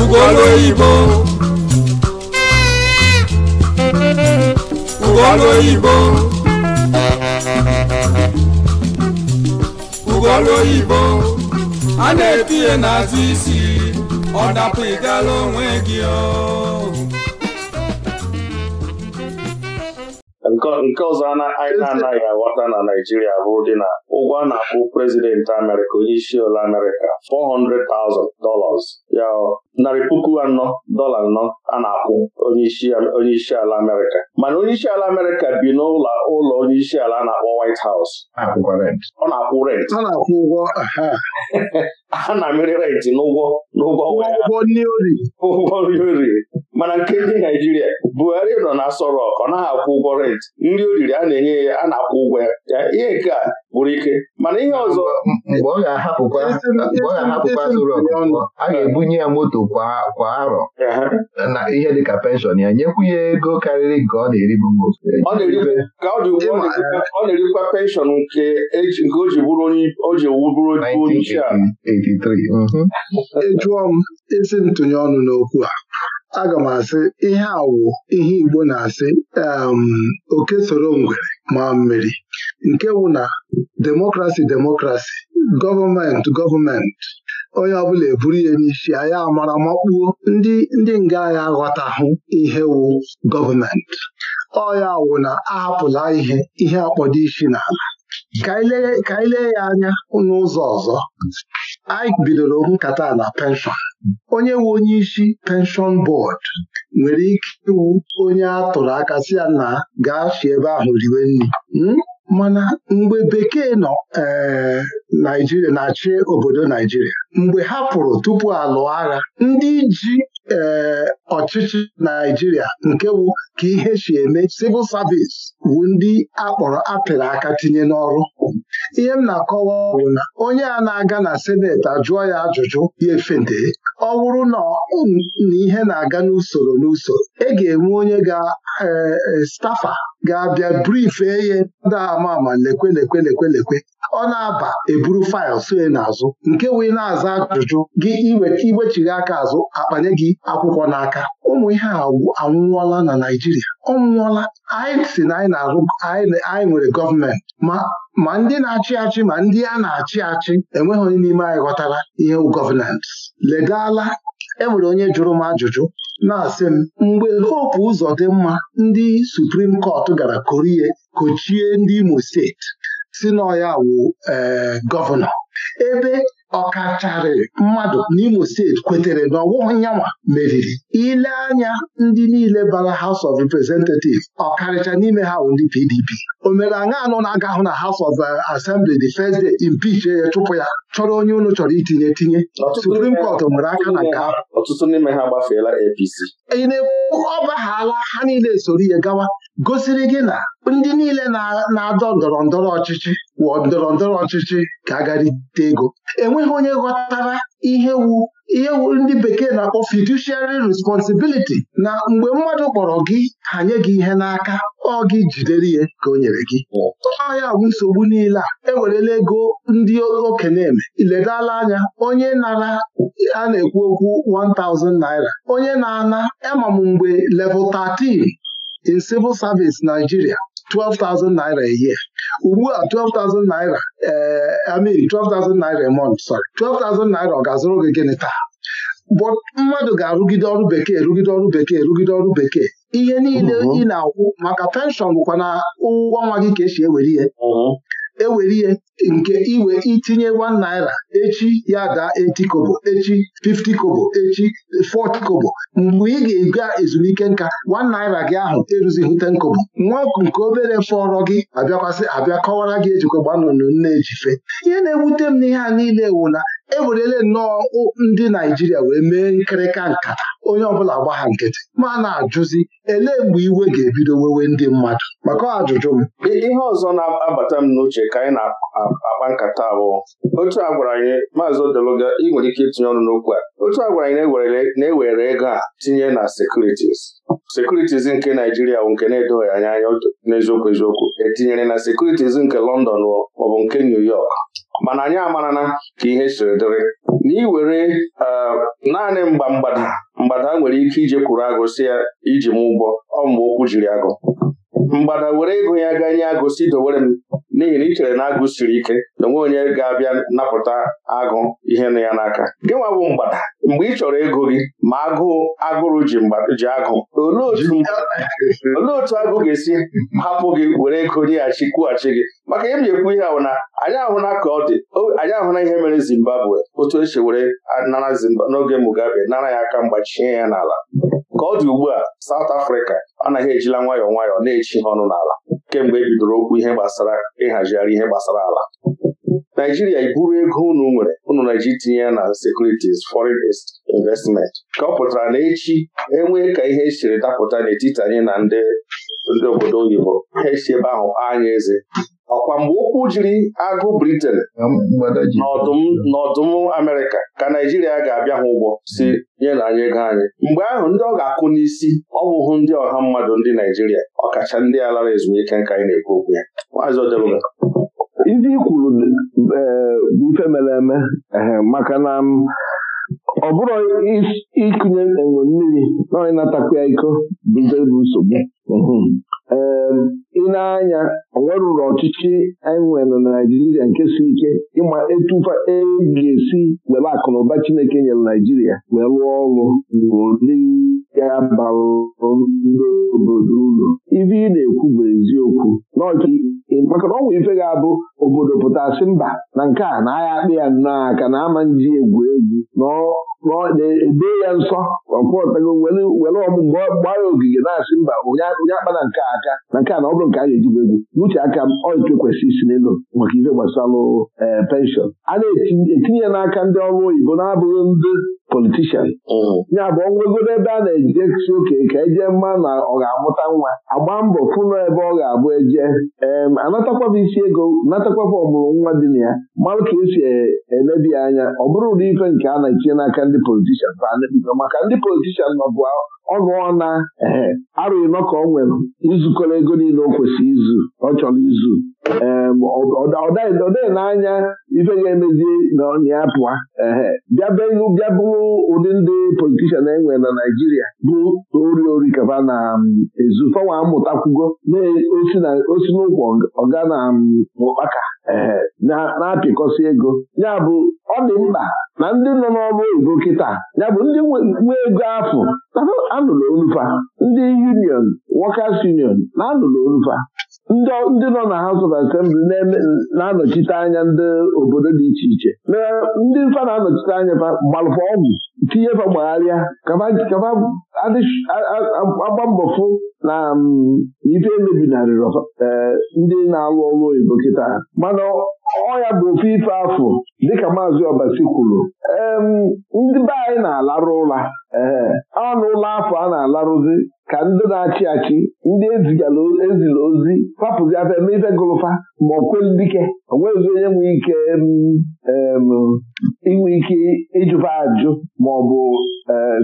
ugolu ugolu oyibo ugolu oyibo a na-etinye n'azụ isi ọ dapụ ịgala onwe gị nke ọzọ anyị na-anaghị aghọta na Naịjirịa bụ dị na ụgwọ a na-akpụ prezidenti Amerịka onye isi ụlọ Amerịka $400,000 ya narị puku anọ dọla anọ a na-akwụ onye isi ala Amerịka mana onye isi ala Amerịka bi n'ụlọ ụlọ onye isi ala a na-akpọ White House ọ na-akwụ rent a na-amịrị rent n'ụgwọ n'ụgwọ ụgwọ nri oriri mana nke ndị Naijiria Buhari nọ na Aso ọ naghị akwụ ụgwọ rent nri o riri a na-enye ya a na-akwụ ụgwọ ya ihe nke a gwụrụ ike mana ihe ọzọ mgbe ọ ga-ahapụkwa a ga-ebunye ya moto kwa arọ na ihe dịka penshọn ya nyekwu ya ego karịrị nke ọ na-eribu ka ọ dị ugbu ọ na-erikwa penshọn nke o ji bụrụ onye isi ala mhm. ejụọ m ezi ntụnye ọnụ n'okwu a aga m asị ihe awụ ihe Igbo na-asị um, oke soro ngwere ma mmiri nke wụ na demokrasi demokrasi gọọmenti gọọmenti onye ọbụla eburu ya n'isi anyị amara makpuo ndị ndị nga anyị aghọtahụ ihe wụ gọọmenti ọya wụ na ahapụla ihe ihe akpọdo isi n'ala ka anyị lee ya anya n'ụzọ ọzọ Ike bidoro nkata na penshọn onye nwe onye isi penshọn bọọdụ nwere ike ịwụ onye a tụrụ aka si ya na gaa si ebe ahụ riwe nri hmm? mana mgbe bekee nọ eh, Naijiria na-achị obodo Naijiria mgbe ha pụrụ tupu alụọ agha ndị ji ee eh, ọchịchị Naijiria nke wụ ka ihe si eme civil service wụ ndị akpọrọ apịrị aka tinye n'ọrụ ihe m na-akọwa ọrụ na onye a na-aga na seneti ajụọ ya ajụjụ ya efente ọ bụrụ na ihe na-aga n'usoro n'usoro e ga-enwe onye ga-estafa eh, eh, ga-abịa brifee ihe ndị ama lekwe lekwe lekwe lekwe ọ na-aba eburu faịl na n'azụ nke wee na-aza ajụjụ gị igwechiri aka azụ akpanye gị akwụkwọ n'aka ụmụ ihe a anwụọla na Naijiria. ọ nwụọla anyị si na anyị nwere gọọmenti ma ma ndị na-achị achị ma ndị a na-achị achị enweghị onye n'ime anyị ghọtara ihe gọvanans ledala enwere onye jụrụ m ajụjụ na-asị m mgbe Hope mma ndị Suprim Kọt gara korie kochie ndị Imo steeti si na ya eh, gọvanọ ebe ọkacharị mmadụ n'Imo steeti kwetere na ọwụnyanwa meriri ile anya ndị niile bara House of Representatives ọkarịcha n'ime ha bụ ndị PDP o mere aṅa anụ na-aga hụ na House of uh, Assembly the first day impeach ya chụpụ ya chọrọ onye unu chọrọ itinye tinye suprim kọt nwere aka na nke ọtụtụ n'ime ha gbafeela APC ị na-ekwu ọ ha niile soro ihe gawa gosiri gị na ndị niile na-adọ ndọrọ ndọrọ ọchịchị wụọ ndọrọ ndọrọ ọchịchị ka agarite ego enweghị onye ghọtara ihe wu ihe ndị bekee na-akpọ fiduciary responsibility na mgbe mmadụ kpọrọ gị hanye gị ihe n'aka ọ gị jidere ihe ka o nyere gị ọ bụ nsogbu niile a ewerela ego ndị okenye eme iledala anya onye nara a na-ekwu okwu 1000 naira onye na-ana ama e mgbe level 13 in civil service Nigeria 12,000 naira a year ugbu a 12,000 naira ee eh, mean 12,000 naira a month sorry 12,000 naira ọ ga-azụrụ gị gịnị taa but mmadụ ga-arụgide ọrụ bekee rụgide ọrụ bekee rụgide ọrụ bekee ihe niile ị na-akwụ maka penshọn bụkwa na ụgwọ nwa gị ka esi ewere ihe ewere ihe nke iwe itinye 1 naira echi ya daa 80 kobo echi 50 kobo echi 40 kobo mgbe ị ga-ega ezumike nka 1 naira gị ahụ eruzighị 10 kobo nwa nke obere fọrọ gị abịakwasị abịa kọwara gị ejikwa gbanụnụ nne ejife ihe na-ewute m n'ihe a niile ewula ewerele nnọọ ndị Naijiria wee mee nkịrịka nkata onye ọbụla gbagha nkịtị ma na-ajụzi elee mgbe iwe ga-ebido wewe ndị mmadụ maka ajụjụ m ihe ọzọ na-abata m n'uche ka anyị na-akpa nkata bụ otu a gwara anyị maazị Odeluga ị nwere ike itinye ọnụ n'okwu a otu a gwara anyị na-ewere e ego a tinye na sekuritis sekuritis nke Naijiria bụ nke na-edoghị anya anya n'eziokwu eziokwu etinyere na sekuritis nke London maọbụ nke New York mana anyị amarana ka ihe siri dịrị were e, naanị mgba mgbada mgbada nwere ike ije kwuru agụ ya iji m ụgbọ ọ mgbe okwu jiri agụ mgbada were ego ya ga nye agụ dowere m n'ihi na ị chere na agụ siri ike na onwe onye ga-abịa napụta agụ ihe nọ ya n'aka gị nwa bụ mgbada mgbe ị chọrọ ego gị ma agụụ agụrụ ji ji agụ olee otu agụ ga-esi hapụ gị were ego nyeghachi kwughachi gị maka ihe m na ekwu ihe ahụ na anyị ahụla ka ọ dị anyị ahụla ihe mere Zimbabwe otu esi were nara n'oge Mugabe nara ya aka mgbachie ya n'ala ka ọ dị ugbu a South Africa anaghị ejila nwayọọ nwayọọ na-echi ha ọnụ n'ala kemgbe e bidoro okwu ihe gbasara ịhazigharị ihe gbasara ala Naijiria iburu ego unu nwere unu na-eji tinye ya na securities foreign investment ka ọ pụtara na echi enwee ka ihe siri dapụta n'etiti anyị na ndị obodo oyibo ha esi ebe ahụ anya eze ọkwa mgbe ụkwụ jiri agụ briten n'ọdụm Amerịka ka Naijiria ga-abịa ha ụgwọ si nye na anyị ego anyị mgbe ahụ ndị ọ ga akụ n'isi ọ ndị ọha mmadụ ndị Naijiria ọkacha ndị a lara ezumike nka anyị na-ekwu okwu ya maazị Odeluga ndị ikwuru bụ eh, ife mere eme eh, maka na mm, ọ bụrụ ịkụnye enwe mmiri na onye na-atakwa ya iko bụ nsogbu mm-hmm. eh, ịna anya onwere ụlọ ọchịchị anyị nwere na Naijiria nke si ike ịma etufa e ga-esi were akụnụba Chineke nyere Naijiria wee rụọ ọrụ n'ụdị ya bara ndị obodo ụlọ ibe ị na-ekwu bụ eziokwu maka na ọnwa ife ga-abụ obodo pụtasị mba na nke a na agha akpị ya nnọọ aka na ama nji egwu egwu na ya nsọ ọkpụọtago were ọmụ mgbe gbaa ogige na-asị mba onye akpa na nke aka na nke a na ọ bụrụ nke a ga-eji egwu n'uche aka m oike kwesịrị isi n'elu maka ife gbasara eh, penshọn a na-etinye ya n'aka ndị ọrụ oyibo na-abụghị ndị politishan mm. ya bụ ọnwegoro ebe a na-ejidesi oke ka eje mma na ọ ga-amụta nwa agba mbọ fụnụ ebe ọ ga-abụ eje em anatakwaba isi ego natakwaba ọmụrụ nwa dị na ya marụ ka esi emebi anya ọ bụrụ ụdị ife nke a na-etinye n'aka ndị politishan maka ndị politishan nọbụ ọnụ ọna ee arụghị nọ ka ọ nwere izukọrọ ego niile o kwesịrị izu ọ chọrọ izu ọ dịghị n'anya ife ga-emezi na ọ pụa ehe bịa ụdị ndị politishan enwe na Naijiria bụ ori ori kaba na ezu fawa amụtakwugo na-osi e, n'ụkwụ ọga na ụkpaka na-apịkọsị ego ya bụ ọ dị mkpa na ndị nọ n'ọrụ oyibo kịta ya bụ ndị nwe ego afọ anụrụ onufa ndị union wọkas union na anụrụ olufa ndị nọ na House of Assembly na-anọchite anya ndị obodo dị iche iche ndị mfa na-anọchite anya gbalụfa ọgwụ tinye fa gbagharịa agba mbọ fụ na mm, ife emebinarịrị eh, ndị na-alụ ọrụ oyibo kịta mana ọ ya bụ ofe ife afọ dịka maazị Ọbasi kwuru ndị be anyị na-alarụ ụla ọnụ eh, ụlọ afọ a na-alarụzi ka ndị na-achị achị ndị ezila ozi papụzi afọ eme ife gụlụfa ma ọ kweli dike onwezi onye nwere ike inwe ike ịjụba ajụ ma ọ eh,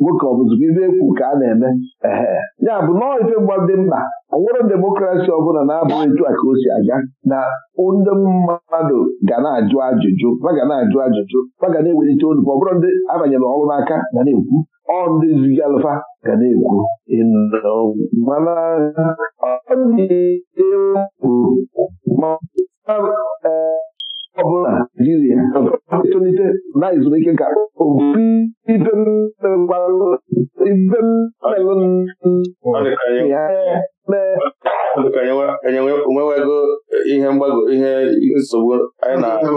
nwoke ọbụzụga ibe ekwu ka a na-eme ehe ya bụ nọọ ife mgbadị mkpa ọ nwere demokrasi ọbụla na-abụghị etu a ka o si aga na ndị mmadụ ga na-ajụ ajụjụ ma na-ajụ ajụjụ ma ga na-ewelite olu ọ bụrụ ndị abanyere ọrụ n'aka ga na-ekwu ọ ndị zigalụfa ga na-ekwu Ọ bụla jiri ya etolite na ezumike nka obibido onwewego ihe mgbago ihe nsogbu anyị na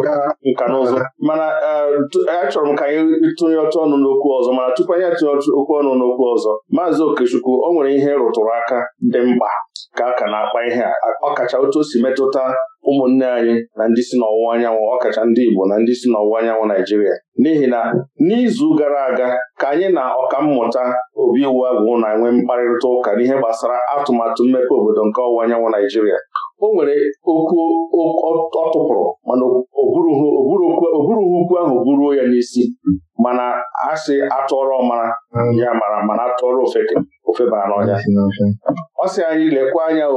nka na mana e, e, achọrọ m ka anyị tụnye ọtụ ọnụ n'okwu ọzọ mana tupu anyị atụnye okwu ọnụ n'okwu ọzọ maazị Okechukwu o nwere ihe rụtụrụ aka dị mkpa ka a ka na-akpa ihe a ọkacha otu o si metụta ụmụnne anyị na ndị si n'ọwụwa anyanwụ ọkacha ndị Igbo na ndị si n'ọwụwa anyanwụ Naijiria n'ihi na n'izu gara aga ka anyị na ọkammụta obi iwu agwụ na-enwe mkparịta ụka n'ihe gbasara atụmatụ mmepe obodo nke ọwụwa anyanwụ Naijiria o nwere okwu ọ tụpụrụ mana oburughị ukwu ahụ buruo ya n'isi mana sị atụọrọ mara ya mara mana atụọrọ ofeba n'ọnya ọ sị anyị lekwa anya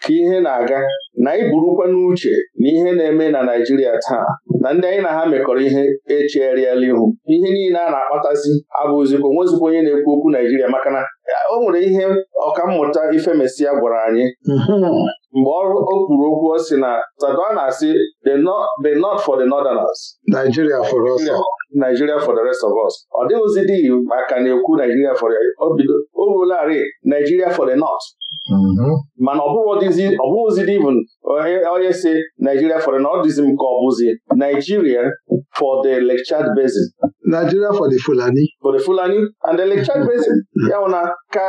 ka ihe na-aga na anyị n'uche na ihe na-eme na Naijiria taa na ndị anyị na ha mekọrọ ihe echegharịala ihu ihe niile a na-akpatazi abụzikwa onwezikwa onye na-ekwu okwu Naijiria maka na e, o nwere ihe ọkammụta Ifemesia gwara anyị hmm. mgbe o kwuru okwu o si na Sadona na-asị the north for the northerners Nigeria for us Nigeria for the rest of us ọ dịghịzi dị maka na-ekwu Nigeria for o ruolarị Nigeria for the north mm-hmm. mana ọ bụghịzi even onye si Nigeria for the north dịzi m ka ọ bụzi Nigeria for the Lake Basin Nigeria for the Fulani. For the Fulani and the lecture basin ya na ka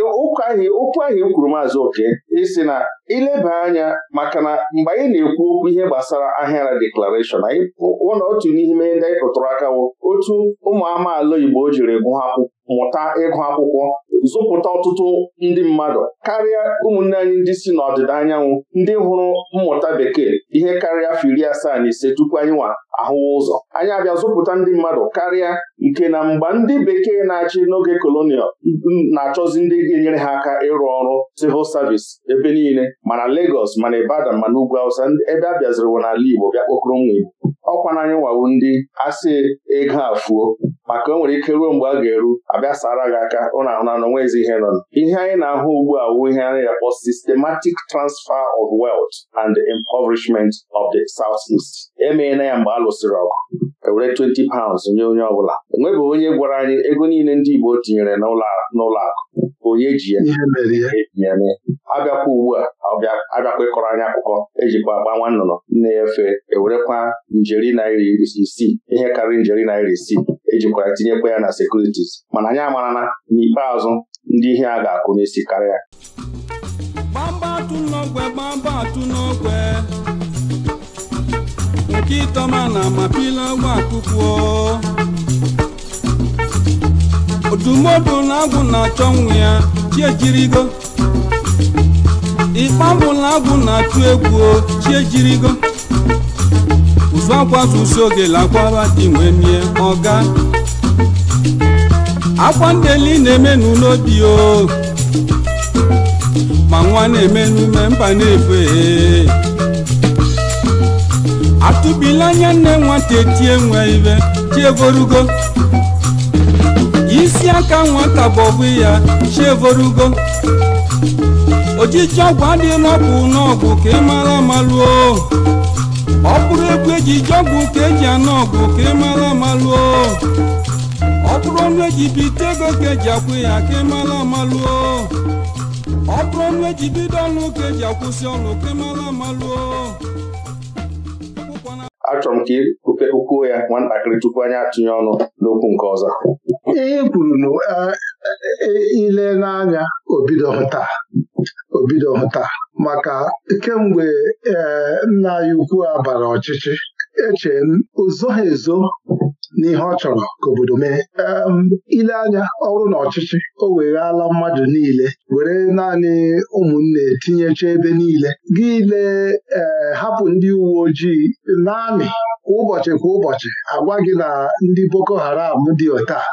ụkwụ ahụ okwu ahụ e kwuru maazị oke isi na ileba anya maka na mgbe anyị na-ekwu okwu ihe gbasara ahịara deklarashọn anyị ụlọ otu n'ime ndị anyị kụtụrụ aka bụ otu ụmụ amaala Igbo jiri mụta ịgụ akwụkwọ zụpụta ọtụtụ ndị mmadụ karịa ụmụnne anyị ndị si n'ọdịda anyanwụ ndị hụrụ mmụta bekee ihe karịa afọ iri asaa na ise tupu anyị nwa ahụwa ụzọ anyị abịa zụpụta ndị mmadụ karịa nke na mgbe ndị bekee na-achị n'oge kolonial na-achọzi ndị ga-enyere ha aka ịrụ ọrụ civil service ebe niile mana legos mana Ibadan mana ugwu awụsa ebe a bịaziriwo n'ala Igbo bịa kpokọrọ nwa Igbo ọkwa na anyị nwawo ndị asị ego afuo maka o nwere ike ruo mgbe a ga-eru abịa sara gị aka ụna ahụ na nwezi ezi ihe nọ ihe anyị na-ahụ ugbu a wu ihe anyị akpọ systematic transfer of wealth and the impoverishment of the Southeast emeela ya mgbe a lụsịrị ọgụ ewere 20 pounds nye onye ọbụla enwebeghị onye gwara anyị ego niile ndị Igbo tinyere n'ụlọ akụ onye ji ya etinye e abịakwa ugbu a abịakwa ịkọrọ anyị akụkọ ejikwa agba nwa nnụnụ na-efe ewerekwa njeri naira isii ihe karịrị njeri naira isii ejikwara tinyekwa ya na sekuritis mana anyị amara na n'ikpeazụ ndị ihe a ga-akwụ n'isi karịa gbamba atụ n'ogwe gbamba n'ogwe nke ịtọma na mapila gwa akwụkwọ ọdụmọdụ na na-achọ nwụ ya chiejirigo ikpambụ na na-atụ egwu chiejirigo uzuakwafusi oge lakwara di wee mie ọga akwa ndeli na-eme n'obi o ma nwa na-eme n'ume mba na atụbila anya nne nwata etie nwe ibe chievorugo isi aka nwata bọbụ ya chievorugo ojiji ọgwụ adịghị n'ọgwụ n'ọgwụ ka ị mara ọ bụrụ egwu eji ije ọgwụ ka eji anụ ọgụ ka ị e mara amalụo ọ bụrụ ọnụ eji bite ego ka eji akwụ ya ka ị e mara amalụo ọ bụrụ ọnụ eji bido ọnụ ka eji akwụsị ọnụ ka ị e mara amalụo achọrọ m ka ukwuo ya nwatakịrị tupu anyị atụnye ọnụ n'okwu nke ọzọ ihe kwuru na ile n'anya obido hụta obido hụta maka kemgbe ee eh, nna anyị ukwu a bara ọchịchị eche m ozo ha ezo n'ihe ọ chọrọ ka obodo mee ile anya ọrụ na ọchịchị o weghala mmadụ niile were naanị ụmụnne tinyecha ebe niile gị ee eh, hapụ ndị uwe ojii n'amị kwa ụbọchị kwa ụbọchị agwa gị na ndị Boko Haram dị otaa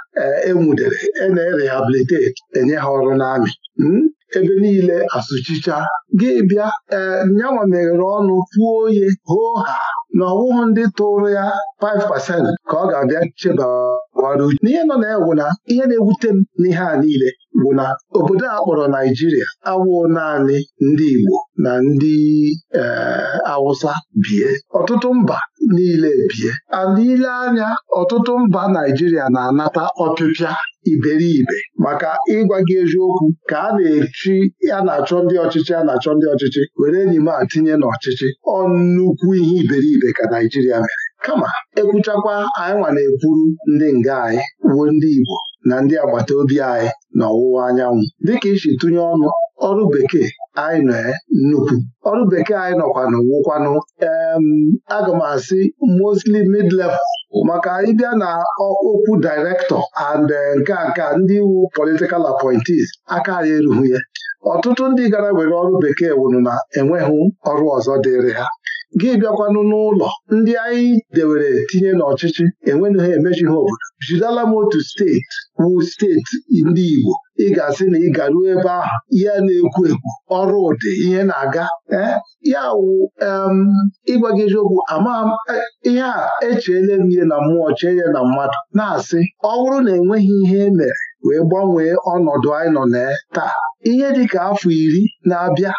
enwudere eh, e e na enye ha ọrụ n'amị hmm? ebe niile asụchicha gị bịa ee eh, nyanwa meghere ọnụ pụọ oye hoo ha na ọwụghụ ndị tụrụ ya 5% ka ọ ga-abịa chebawara uche n'ihe nọ na-ewu na ihe na-ewute m n'ihe a niile bụ na obodo a kpọrọ Naijiria awụ naanị ndị Igbo na ndị eh, Awụsa bie ọtụtụ mba niile bie and ile anya ọtụtụ mba Naijiria na-anata ọpịpịa iberibe maka ịgwa gị eziokwu ka a na-echi a na-achọ ndị ọchịchị a na-achọ ndị ọchịchị were enyi m a tinye n'ọchịchị ọ ihe iberibe ka Naijiria mere kama ekwuchakwa anyị nwa na-ekwuru ndị nga anyị wuo ndị Igbo na ndị agbata obi anyị n'ọwụwa anyanwụ dịka isi tụnye ọnụ ọrụ bekee anyị nọ eh, nnukwu ọrụ bekee anyị nọkwanụ wụkwanụ aga m asị mostly mid maka ịbịa na okwu director and eh, nke nke ndị iwu political appointees aka anyị erughị ya eh. ọtụtụ ndị gara were ọrụ bekee wụrụ na enweghị ọrụ ọzọ dịịrị ha gị bịakwanụ n'ụlọ ndị anyị dewere tinye n'ọchịchị enweghị ha emechi ha obodo jidela m otu steeti wu steeti ndị Igbo ị ga-asị na ị garuo ebe ahụ ihe na-ekwu ekwu ọrụ ụdị ihe na-aga eh, ya wụ ịgwa gị eziokwu ama eh, ihe a echeela m ihe na mmụọ chee ya na mmadụ na-asị ọ bụrụ na enweghị ihe e mere wee gbanwee ọnọdụ anyị nọ na taa ihe dị ka afọ iri na-abịa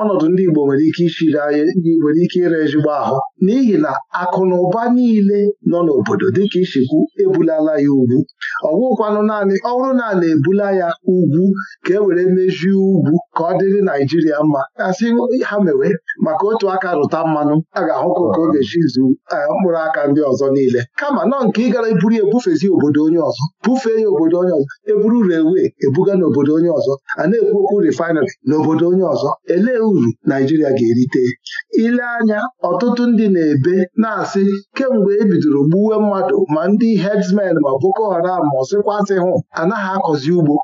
ọnọdụ ndị Igbo nwere ike ichiri anyị nwere ike ire ezigbo ahụ n'ihi na akụ na ụba niile nọ n'obodo dịka ishekwu ebulala ya ugwu ọgwụkwanụ naanị ọhụrụ na na-ebula ya ugwu ka e were mejie ugwu ka ọ dịrị Naijiria mma asị ha mewe maka otu aka rụta mmanụ a ga ahụ ka ọ ga-echi eh, mkpụrụ aka ndị ọzọ niile kama nọ nke ị gara eburu ebufezi obodo onye ọzọ bufee ya obodo onye ọzọ eburu rewe ebuga n'obodo onye ọzọ a na-ekwu okwu refinery n'obodo onye ọzọ elee uru Naijiria ga-erite ile anya ọtụtụ ndị na-ebe na-asị kemgbe e bidoro gbuwe mmadụ ma ndị hedsmen ma Boko Haram ma ọsịkwasị hụ anaghị akọzi ugbo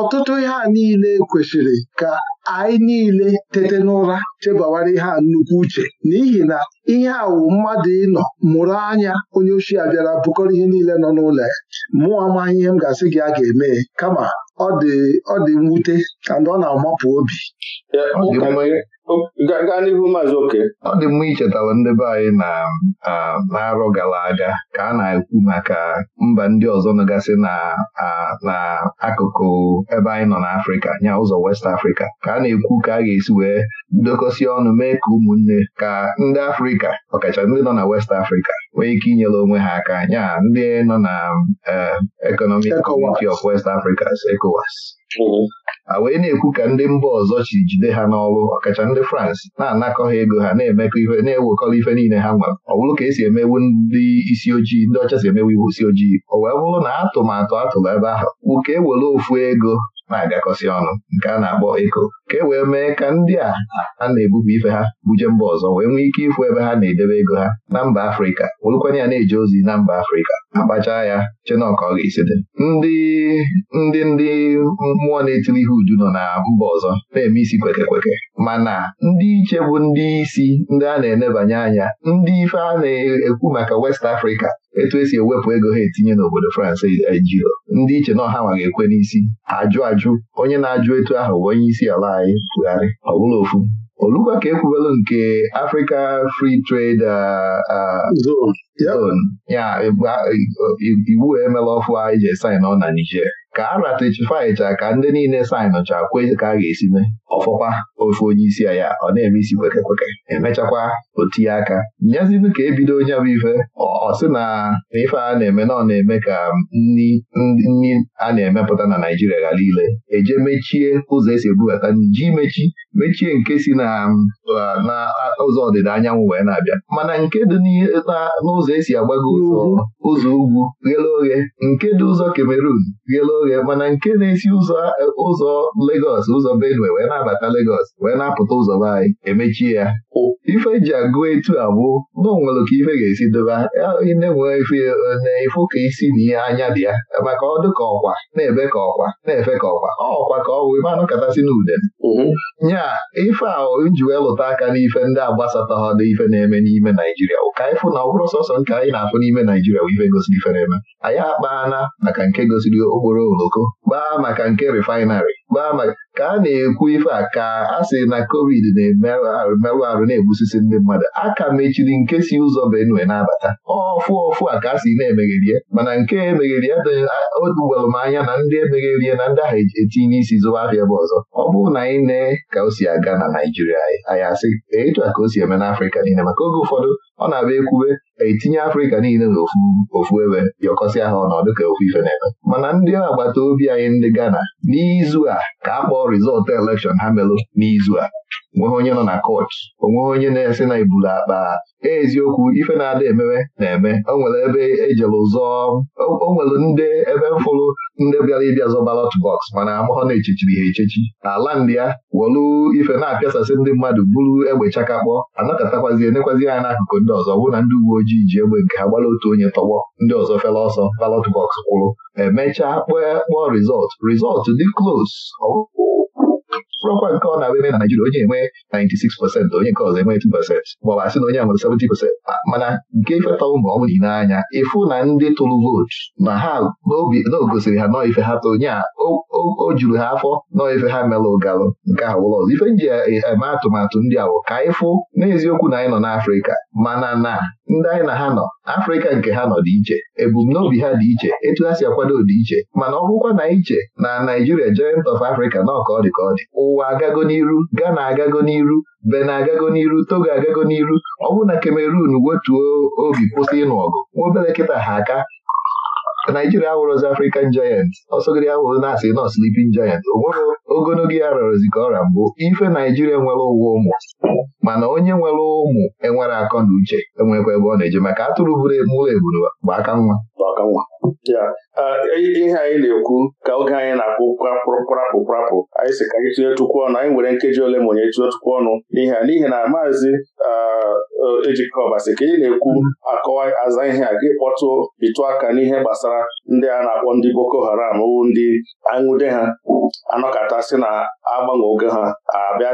ọtụtụ ihe a niile kwesịrị ka anyị niile tete n'ụra chebawara ihe a nnukwu uche n'ihi na ihe awụ mmadụ ịnọ mụrụ anya onye ochie bịara bụkọrọ ihe niile nọ n'ụlọ ya mụọ amaghị ihe m ga-asị gị a ga-eme kama ọ dị ọ dị mwute ọ na-amapụ obi gaa n'ihu maazị oke ọ dị mma ichetara ndị be anyị na arọ gara aga ka a na-ekwu maka mba ndị ọzọ nọgasị na akụkụ ebe anyị nọ n'Afrịka nya ụzọ West Africa ka a na-ekwu ka a ga-esi wee dokọsie ọnụ mee ka ụmụnne ka ndị Afrịka ọkacha ndị nọ na West Africa nwee ike inyere onwe ha aka anya ndị nọ na e, Economic Community of West Africa ECOWAS mm-hmm. wee na-ekwu ka ndị mba ọzọ chi jide ha n'ọrụ ọkacha ndị France na-anakọ ha ego ha na-emekọ ife na-ewekọrọ ife niile ha nwere ọ bụrụ ka esi emewu ndị isi ojii ndị ọcha si emewu iwu isi ojii o wee bụrụ na atụmatụ atụrụ ebe ahụ bụ e were ofu ego na-agakọsị ọnụ nke a na-akpọ eko ka e wee mee ka ndị a a na-ebupụ ife ha buje mba ọzọ wee nwee ike ịfụ ebe ha na-edebe ego ha na mba Afrịka werekwanye ya na-eje ozi na mba Afrịka akpacha ya chinọka ọ ga-esi dị ndị ndị ndị mmụọ na-etiri ihe uju nọ na mba ọzọ na-eme isi kweke kweke mana ndị iche bụ ndị isi ndị a na-enebanye anya ndị ife a na-ekwu maka West Africa etu esi ewepụ ego ha etinye n'obodo France ejiro e, ndị iche na ọha ma ekwe n'isi ajụ ajụ onye na-ajụ etu ahụ bụ onye isi ala anyị tụgharị ọ bụla ofu olugwa ka ekwubelu nke Africa Free Trade Zone ya iwu e, emela e, ọfụ anyị ije sain ọ na Niger ka a icha ka ndị niile saịnụcha kwe ka a ga-esi mee ọfọkwa ofe onye isi ya ọ na-eme isi kweke kweke emechakwa otinye aka nyezinụ ka ebido onye bụ ife Ọsị na ife a na-eme na ọ na-eme ka nri a na-emepụta na naijiria ghara ile eje mechie ụzọ esi ebubata ji mechi mechie nke si na ụzọ ọdịda anyanwụ wee na-abịa mana nke dị n'ụzọ esi agbago ụzọ ugwu ghele oghe nke dị ụzọ Cameroon ghele oghe ya mana nke na-esi ụzọ ụzọ Legọs ụzọ Benue wee na-abata Legos wee na-apụta ụzọ be anyị emechie ya ife ji agụ etu a na onwere ka ife ga-esi dobe na-enwe ka isi na ihe anya dị ya maka ọdụ ka ọkwa na-ebe ka ọkwa na-efe ka ọkwa ọkwa ka ọ wee manụ katasị na ude nya ife a nji wee lụta aka n'ife ndị agbasata ha dị ife na-eme n'ime Naijiria ụka ịfụ na ọkwụrụ sọsọ nke anyị na-afụ n'ime Naijiria bụ ife gosiri ife na-eme anyị akpaana maka nke gosiri okporo oloko gbaa maka nke refinery. gbaa maka ka a na-ekwu ife a ka a sị na covid na-emerụ arụ merụ arụ na-egbusisi ndị mmadụ A ka mechiri nke si ụzọ Benue na-abata ọfụ ọfụ a ka a sị na-emegherie mana nke emegheri odugwalụ m anya na ndị emegherie na ndị ahụ e, etinye isi zụba afịa bụ ọzọ ọ bụrụ na anyị na ka o si aga na Naijiria anyị asị etu a ka o si eme n'Afrịka niile maka oge ụfọdụ ọ na-abịa ekwube etinye Afrịka niile n'ofu ebe y'ọkọsị ahụ ọnọdụ ka ofu ife na-eme mana ndị agbata obi anyị ndị Ghana n'izu a ka a rizọltụ elekshọn ha melụ n'izu a onweghị onye nọ na kọch onweghị onye na-esi na ibulu akpa e, eziokwu ife na-ada emewe na-eme onwere ebe ejere ụzọ ndị ebe fụrụ ndị bịara ịbịa zọ balọt bọks mana amụhọ na-echechiri ha echechi ala ndị ya wolu ife na-apịasasị ndị mmadụ bụrụ egbe chakakpọ anakatakwazi enekwazi ya n'akụkụ ndị ọzọ wụ na ndị uwe ojii ji egbe nke ha gbara otu onye tọgbọ ndị ọzọ fela ọsọ balọt bọks kwụrụ emechaa kpọọ kpọọ rizọt rizọt dị klos bụrụkwa nke ọ na-abụ ebe na Naijiria onye enwe 96 pasentị onye nke ọzọ enwe 2 pasentị maọbụ asị na onye a nwere mana nke ifetaụ ma ọmụ bụ anya ịfụ na ndị tụrụ vootu na ha n'obi na o gosiri ha nọọ ife ha tụrụ a o juru ha afọ nọ ife ha mere ụgalụ nke ahụ ụlọ ọzọ ife nji eme atụmatụ ndị awụ ka anyị fụ n'eziokwu na anyị nọ n'Afrịka mana na ndị anyị na ha nọ Afrịka nke ha nọ dị iche ebumnobi ha dị iche etu ha si akwado dị iche mana ọgwụkwa na iche na Naijiria joint of Africa na ka ọ dị ka ọ dị ụwa agago n'iru Ghana agago n'iru Benin agago n'iru Togo agago n'iru ọ bụrụ na Cameroon wetuo obi kwụsị ịnụ ọgụ nwa obere kịta ha aka Naijiria awụrụzi African Giant ọsọgide awụrụ na-asị nọ Sleeping Giant o ogologo ya rọrọzi ka ọra mbụ ife Naijiria nwere ụwa ụmụ mana onye nwere ụmụ enwere akọ na uche enwekwa ebe ọ na-eje maka atụrụ buru e, mụrụ eburu bụ aka nwa ihe anyị na-ekwu ka oge anyị na-akpụ kpụrapụ kpụrapụ anyị si ka anyị tinye tukwu ọnụ anyị nwere nkeji ole ma tinye tukwu ọnụ n'ihe a n'ihi na maazị uh, ejikọbasị ka ị na-ekwu akọwa aza ihe a gị kpọtụ bitụ aka n'ihe gbasara ndị a na-akpọ ndị Boko Haram owu ndị aṅụde ha anọkọtasị na agbanwe oge ha abịa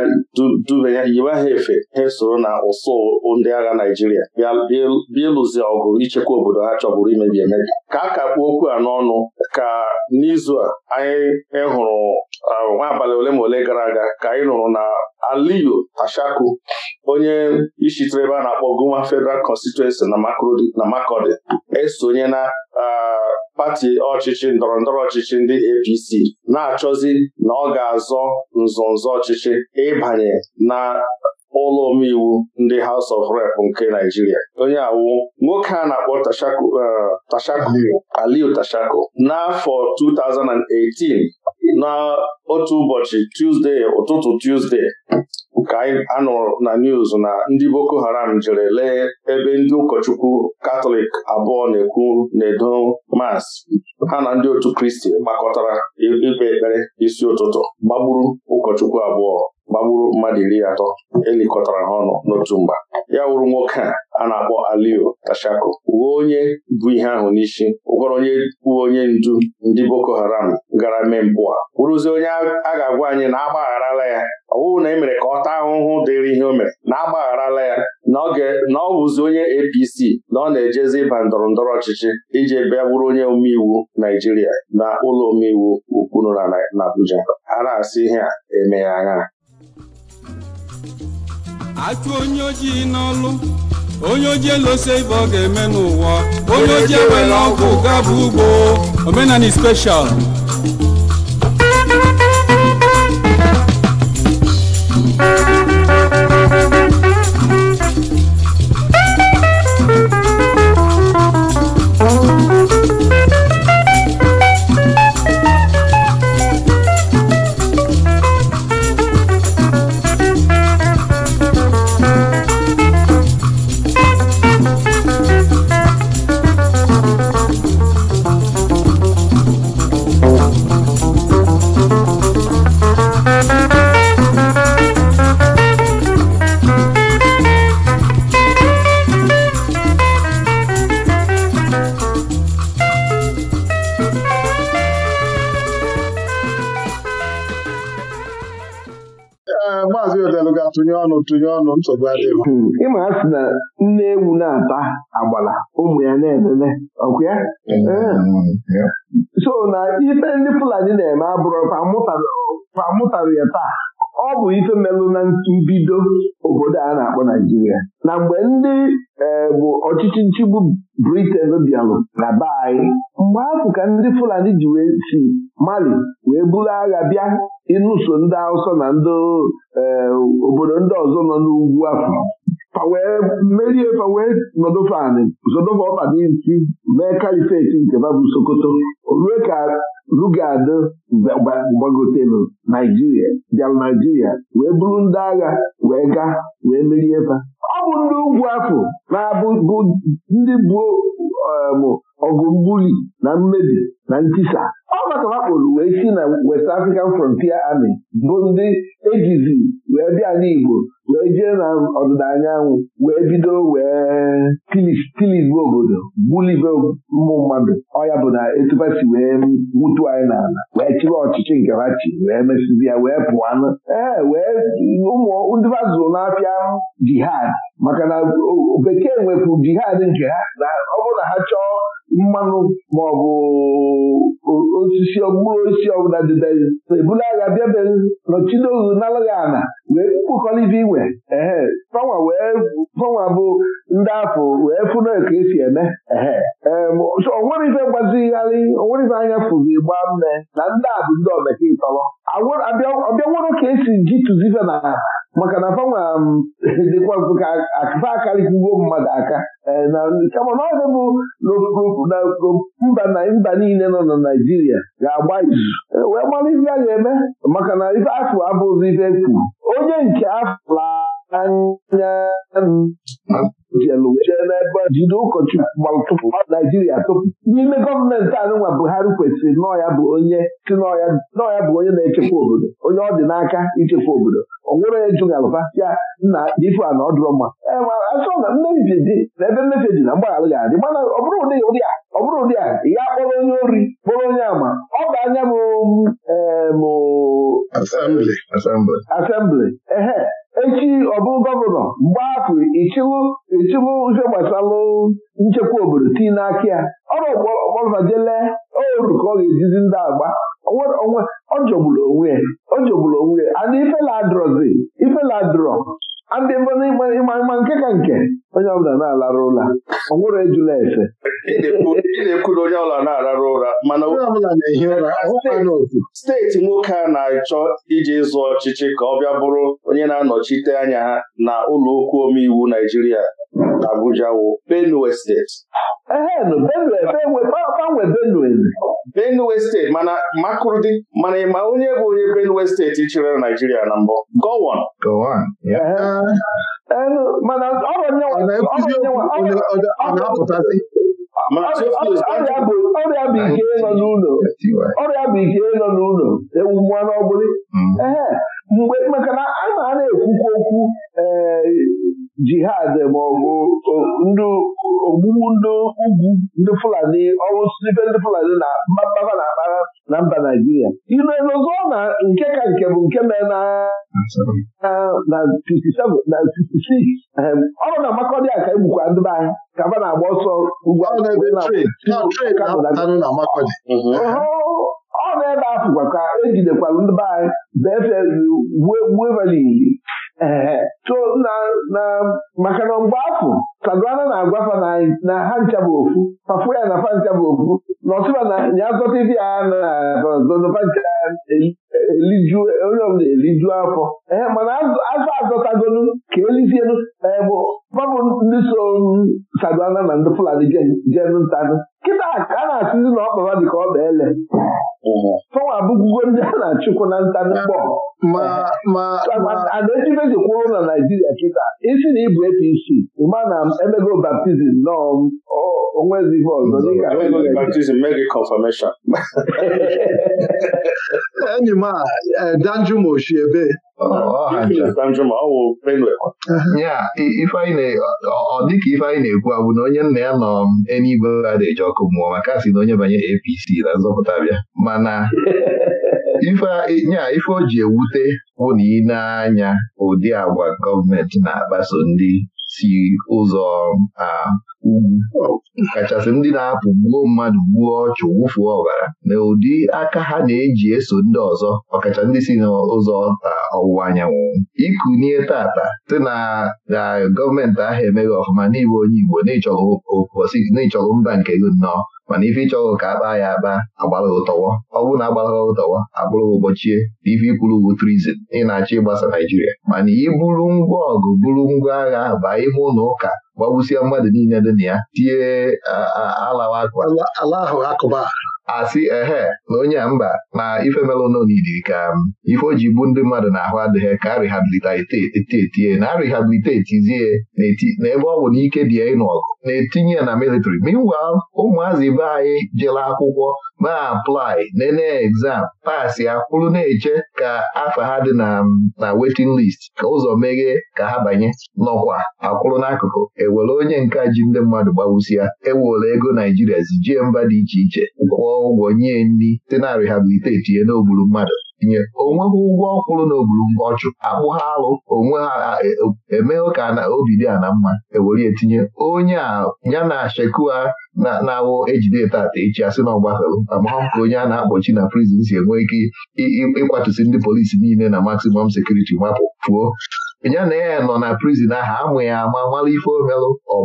dubanye yiwe ha efe ha soro na ụsụ ndị agha Naijiria bịa ịlụzi ọgụ ichekwa obodo ha chọburu imebi emebi ka a ka okwu anọ ọnụ ka n'izu a anyị hụrụ uh, nwa abalị ole ma ole gara aga ka anyị nụrụ na Aliyu Tashaku onye ishitere ebe a na-akpọ Guma Federal Constituency na Makurdi esonye na uh, pati ọchịchị ndọrọ ndọrọ ọchịchị ndị APC na-achọzi na ọ ga-azọ nzọnzọ ọchịchị ịbanye na ụlọ omeiwu ndị House of Rep nke Naijiria onye awu nwoke a na-akpọ Tashaku uh, Aliu Tashaku n'afọ 2018 na otu ụbọchị Tuzdee, ụtụtụ Tuzdee, nke a na news na ndị Boko Haram jere lee ebe ndị ụkọchukwu Katọlik abụọ na-ekwu na mas ha na ndị otu Kristi gbakọtara ikpe ekpere isi ụtụtụ gbagburu ụkọchukwu abụọ gbagburu mmadụ iri atọ elikọtara ha ọnụ n'otu mgba ya wụrụ nwoke a a na-akpọ Alio Tashako uwe onye bụ ihe ahụ n'isi ụgwọrọ onye uwe onye ndu ndị Boko Haram gara mee mpụ a onye a ga-agwa anyị na agbagharala ya ọ bụrụ na e mere ka ọ taa ahụhụ dịrị ihe o mere na agbagharala ya na ọ bụzi onye APC na ọ na-ejezi ịba ndọrọ ndọrọ ọchịchị iji bịa bụrụ onye omeiwu Naijiria na ụlọ omeiwu ukwu nọ na Abuja a na-asị ihe a emeghe anya achụ onye ojii n'ọlụ onye ojii elose ibe ọ ga-eme n'ụwa onye ojii ewere ọgwụ gaba ugbo omenani special tụnye ọnụ tụnye ọnụ nsogbu adịghị hmm. ịma a sị na nne ewu na-ata agbala ụmụ ya na-elele ọkụ eh. so na ife ndị Fulani na-eme abụrụ pamụtarụ ya taa ọ bụ ife melụ na mbido obodo a na-akpọ Naijiria na mgbe ndị eh, bụ ọchịchị nchigbu Briten bịalụ na be anyị mgbe afụ ka ndị Fulani ji wee si Mali wee buru agha bịa ịnụso ndị awụsa na ndị eh, obodo ndị ọzọ nọ n'ugwu afọ wee merie fa wee nọdụ faanị, ọkpa n'isi mee kalifeti nke babụ Sokoto o rue ka Lugado gbagotelu Naijiria bịara Naijiria wee bụrụ ndị agha wee gaa wee merie ba ọ bụ ndị ugwu afọ na-abụ ndị bụ um, ọgụ mgbuli na mmebi na ntisa ọ gbatarakpụrụ wee si na West African Frontier Army bụ ndị ejizi wee bịa n'Igbo wee jee na ọdịda anyanwụ wee bido wee tilibe obodo gbulibe ụmụ mmadụ ọya bụ na etuba si wee nwutu anyị n'ala wee chịrị ọchịchị nke ha chi wee mesịzi ya wee pụanụ ee wee ụmụndị bazụrụ na-apịa jihad maka na bekee nwepụ jihad nke ha na ọ bụrụ na ha chọọ mmanụ maọbụ osisi mkpụrụ osisi ọbụla didezi agha bịabe nọchidozu nalaghị ana wee kpụkọlite iwe ehe fanwa wee fanwa bụ ndị afọ wee fụna ka esi eme ehe onwere ife gbazigharị onwere ife anya fụzi gba nne na ndị a bụ ndị omeka ịtọrọ ọbịanwero ka esi ji tụzife na maka na fanwa dịkwa ka akụfa akarịkwugo mmadụ aka Eh, na kama na ọ bụ mba na mba niile nọ na Naijiria ga-agba izu eh, wee mara ife a ga-eme maka na ife afọ abụghịzi ife e kwuru onye nke afọ anya jelu jee n'ebe jide ụkọchukwu tụpụ naijiria tụpụ n'ime gọọmenti anụnwa buhari kwesịrị nọọ ya bụ onye si nọọ bụ onye na-echekwa obodo onye ọ dị n'aka ichekwa obodo ọ nwere onye ya na ife a na ọ dụrọ mma na mmebi dị na ebe mmebi dị na mgbaghara ga-adị mana ọ bụrụ ụdị ụdị a ọ bụrụ ụdị a ya kpọrọ onye ori kpọrọ onye ama ọ bụ anya m asembli ehe echi ọbụ gọvanọ mgbe afọ ichiwu ichiwu ihe gbasalụ nchekwa obodo tii n'aka ya ọrụ ọgbọrọjele oru ka ọ ga-ejizi ndị agba ọ jọgburu onwe ya ọ jọgburu onwe ya and ifeladrọzi ifeladrọ ndị ịma nke ka nke onye ọbụla na-alarụ ụra ọ nwere ejula efe ị na-ekwu na onye ọbụla na-ararụ ụra mana na-ehi ụra, steeti nwoke a na-achọ iji ịzụ ọchịchị ka ọ bịa bụrụ onye na-anọchite anya ha na ụlọ okwu omeiwu Naijiria Abuja wụ Benue steeti Benue steeti mana Makurdi mana ịma onye bụ onye Benue steeti chịrị Naijiria na mbụ Gowon mana ọ ọrịa bụ ike nọ n'ụlọ ọrịa bụ ike nọ n'ụlọ ewu mmanụ ọbụla mm. ee mgbe maka na a na-ekwukwa okwu ee eh, jihad maọbụ ndị ogbugbu ndị ugwu ndị Fulani ọrụ ibe ndị Fulani na mbaba na akpara na mba Naijiria ilue na nke ka nke bụ nke mee na na 56 ọrụ na Makọdị a ka egbukwa ndị be anyị ka ba na-agba ọsọ ugwu ọ na-ebe afụkwa ka ejidekwara e ndị be anyị befe gbuo maka eh, na mgbe afụ kaduna na-agwafa agwa na ha ncha bụ ofu fafu ya na fa ncha bụ ofu n'ọsụba na ya zọta ibi na naeliju onye ọbụla eliju afọ ee mana azụ azọtagolu ka elizielu e, bụ babụ ndị so Sadwana na ndị Fulani jenu ntanụ kịta ka a na-asịzi na ọkpara dị ka ọ bụ ele fọnwa abụgwugo ndị a na-achụkwu na ntanụ mkpọ adaejibejikwa ụlọ na Naijiria kịta isi na ịbụ APC ịma na emego baptizim nọọ onwezi ibe ọzọ dịka mee confirmation enyi m a Danjuma Oshiebe dịka ife anyị na-ekwu abụ na onye nna ya nọ um, enigwe a na-eji ọkụ mmụọ maka a na onye banye APC na nzọpụta bịa mana nya ife eh, o ji ewute bụ na ị na-anya ụdị agwa gọọmenti na-akpaso ndị si ụzọ a ugwu kachasị ndị na-apụ gbuo mmadụ gbuo ọchụ wụfuo ọbara na ụdị aka ha na-eji eso ndị ọzọ ọkacha ndị si n'ụzọ ọwụwa anyanwụ ikunie tata site na na gọọmenti ahụ emeghị ọfụma n'ime onye Igbo n'ịchọghị mba nke gị nnọọ mana ife ịchọghị ka a kpaa ya akpa agbalaghị ụtọwọ ọ bụrụ na agbalaghị ụtọwọ abụrụghị ụbọchie na ife ikwuru bụ trizin ị na-achọ ịgbasa Naijiria mana ị ngwa ọgụ buru ngwa agha baa ime ụlọ ụka gbagbusie mmadụ niile dị na ya tie alawa asị ehe na onye a mba na ife melụnọ ka um, ife o ji gbu ndị mmadụ na-ahụ adịghị ka a rehabilitetie na a na ebe ọ bụ na ike dị ya ịnụ ọgụ na-etinye na military meanwhile ụmụazị ibe anyị jere akwụkwọ ma aplai nene egzam pasị akwụrụ na-eche ka afa ha dị na wetin list ka ụzọ meghee ka ha banye nọkwa akwụrụ n'akụkụ ewere onye nka ji ndị mmadụ ya ewere ego Naijiria zijie mba dị iche iche kwụọ ụgwọ nye nri site na rehabiliteti ya n'ogburu mmadụ tinye onweghị ụgwọ ọkwụrụ na mgbe ọchụ akpụ ha alụ onwe ha e, emeghe ka na obi dị a na mma ewere etinye onye a ya na shekua na-awụ ejide tata echi asị na ọgbafelu amahụ ka onye a na-akpọchi na prizin si enwe ike ịkwatusi ndị polisi niile na maximum sekuriti mapụ pụọ ya na ya nọ na prizin ahụ amụ ya ama mara ife omelụ ọ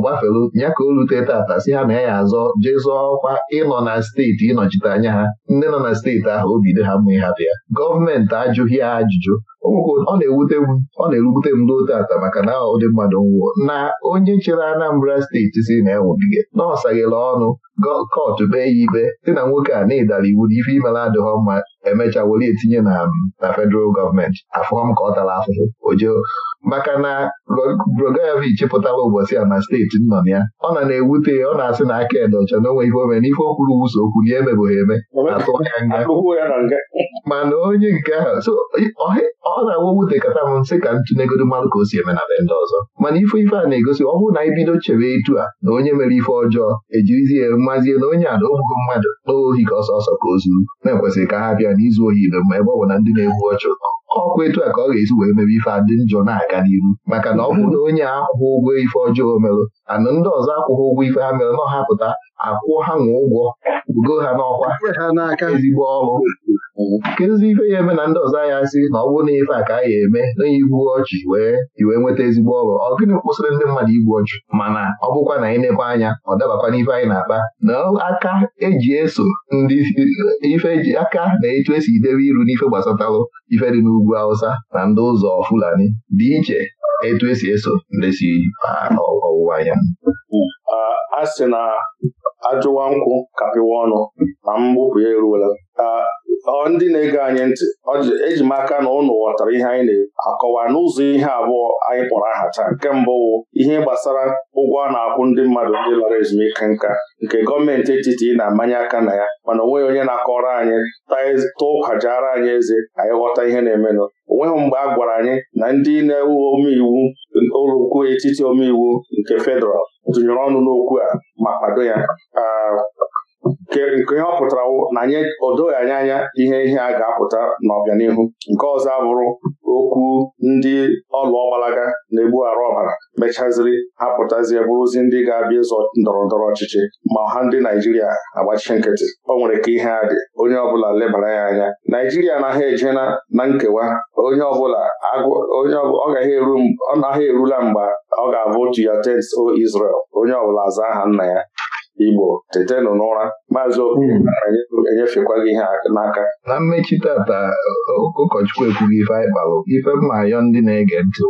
ya ka o rute tata si ha na ya azọ jee zụọ ọkwa ịnọ na steeti ịnọchite anya ha ndị nọ na steeti ahụ o ha mmụ ịhapụ ya gọọmenti ajụghị ya ajụjụ ọ na-ewute m ọ na-erubute m ruo tata maka na ụdị mmadụ nwụọ na onye chere Anambra steeti si na ewubige na ọ ọnụ kọtụ kpee ya ikpe dị na nwoke a na ịdara iwu na ife imere adịghọ mma emecha were etinye na na federal gọọmenti afụọ m ka ọ tara afụfụ ojoo maka na Rogoyevich pụtara ụbọchị a na steeti nọ ya ọ na na-ewute ọ na-asị na aka ede ọcha na onwe ihe ome n'ife okwuru kwuru okwu na emebụghị eme atụ ya nga mana onye nke ahụ so ọ na-awa wute kata m nsị ka ntụnegodi mmadụ ka o si eme na be ndị ọzọ mana ife ife a na-egosi ọ bụrụ na ibido bido chewe etu a na onye mere ife ọjọọ ejirizie mmazie na onye a na ogbugo mmadụ n'ohi ka ọsọ ọsọ ka o zuru na-ekwesịrị ka ha bịa n'izu ohi ebe mma ebe ọ bụ na ndị na-egbu ọchụ ọkwa etu a ka ọ ga-esi wee mebe ife adị njọ na-aga n'iru maka na ọ bụrụ na onye akwụghị ụgwọ ife ọjọọ merụ ana ndị ọzọ akwụghị ụgwọ ife ha mere na ọhapụta akwụ ha nwa ụgwọ bugo ha n'ọkwa ezigbo ọrụ nkezi ife ya eme na ndị ọzọ anya sị na ọ bụrụ na ife a ka a ya eme na igbu ọchị wee wee nweta ezigbo ọrụ ọ gịnị kwụsịrị ndị mmadụ igbu ọchị mana ọ bụkwa na anyị anya ọ dabakwa n'ife anyị na-akpa na aka eji eso ndị ife eji aka na etu esi idebe iru n'ife gbasatalụ ife dị n'ugwu Hausa na ndị ụzọ Fulani dị iche etu esi eso ndị si ọwụwa anyanwụ a sị na ajụwa nkwụ kapịwa ọnụ ma mgbupụ ya eruola ndị na-ege anyị ntị eji m aka na ụnụ ghọtara ihe anyị na-akọwa n'ụzọ ihe abụọ anyị kpọrọ aha taa nke mbụ ihe gbasara ụgwọ a na-akwụ ndị mmadụ ndị lara ezumike nka nke gọọmenti etiti na-amanye aka na ya mana onweghị onye na-akọrọ anyị tụọ ụkwajara anyị eze anyị ghọta ihe na-emenụ onweghị mgbe a gwara anyị na ndị na-ewu omeiwu ụlọukwu etiti omeiwu nke fedral tụnyere ọnụ n'okwu a ma kwado ya nke ihe ọ pụtara na anyị o doghị anya ihe ihe a ga-apụta n'ọbịanihu nke ọzọ abụrụ okwu ndị ọlụ ọgbalaga na-egbu arụ ọbara mechaziri ha pụtazie bụrụzi ndị ga-abịa ịzọ ndọrọ ndọrọ ọchịchị ma ọha ndị Naijiria agbachi nkịtị o nwere ka ihe a dị onye ọbụla lebara ya anya Naijiria naghị eje na nkewa onye ọbụla onye ọ gaghị naghị erula mgbe ọ ga-abụ to your tents o Israel onye ọbụla zaa aha nna ya Igbo tetenụ n'ụra maazị Okeke enyefekwa gị ihe n'aka na mmechi tata ụkọchukwu ekwughị ife anyị kpalụ ife mma ayọ ndị na-ege ntị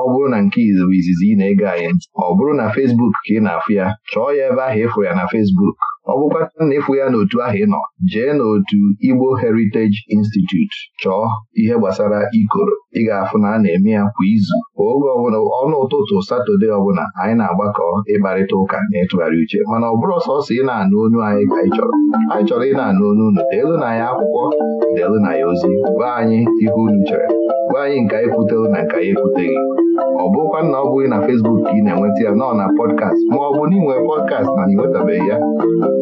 ọ bụrụ na nke izizi ị na-ege anyị ọ bụrụ na Fesbuk ka ị na-afụ ya chọọ ya ebe ahụ ịfụrụ ya na Fesbuk ọ na ịfụ ya n'otu ahụ ị nọ jee n'otu Igbo Heritage Institute chọọ ihe gbasara ikoro ị ga-afụ na a na-eme ya kwa izu oge ọbụla ọnụ ụtụtụ satọde ọbụla anyị na-agbakọ ịkparịta ụka na ịtụgharị uche mana ọ bụrụ ọsọsọ ị na-anụ onu anyị ka anyị chọrọ anyị chọrọ ị na-anụ onu unu deelu na ya akwụkwọ deelu na ya ozi gwa anyị ihe unu chere gwa anyị nke anyị kwutelu na nke anyị ekwuteghị ọ bụkwa na ọ bụghị na Facebook ka ị na-enweta ya nọ na pọdkast ma ọ bụ na ị pọdkast na ịnwetabeghị ya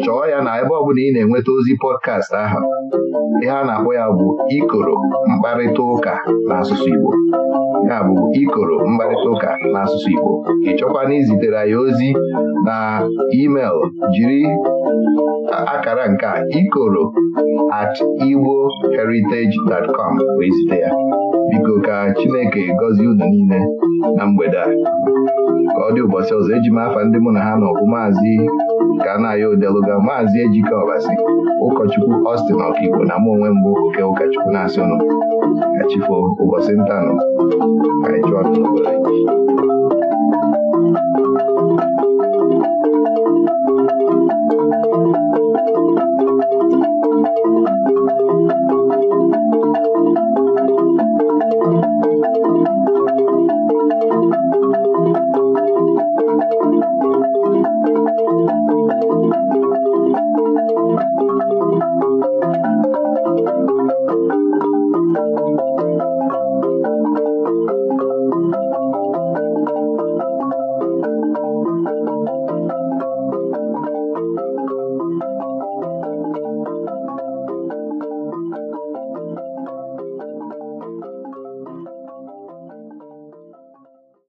chọọ ya na ebe ọ ị na-enweta ozi pọdkast ahụ ihe a na-akpọ ya bụ ikoro mkparịta ụka n'asụsụ Igbo ya bụ ikoro mkparịta ụka n'asụsụ Igbo ị chọkwana izitere ya ozi na email jiri akara nke ikoro at igboheritage.com wee zite ya biko ka Chineke gọzie unu niile na mgbede a ka ọ dị ụbọchị ọzọ eji m afa ndị mụ na ha na maazị ka a na-aya odeluga maazị Ejike Ọbasi ụkọchukwu Ọstin Ọkigbo na mụ onwe mbụ oke ụkọchukwu na asị ka chifo ụbọchị ntanụ ka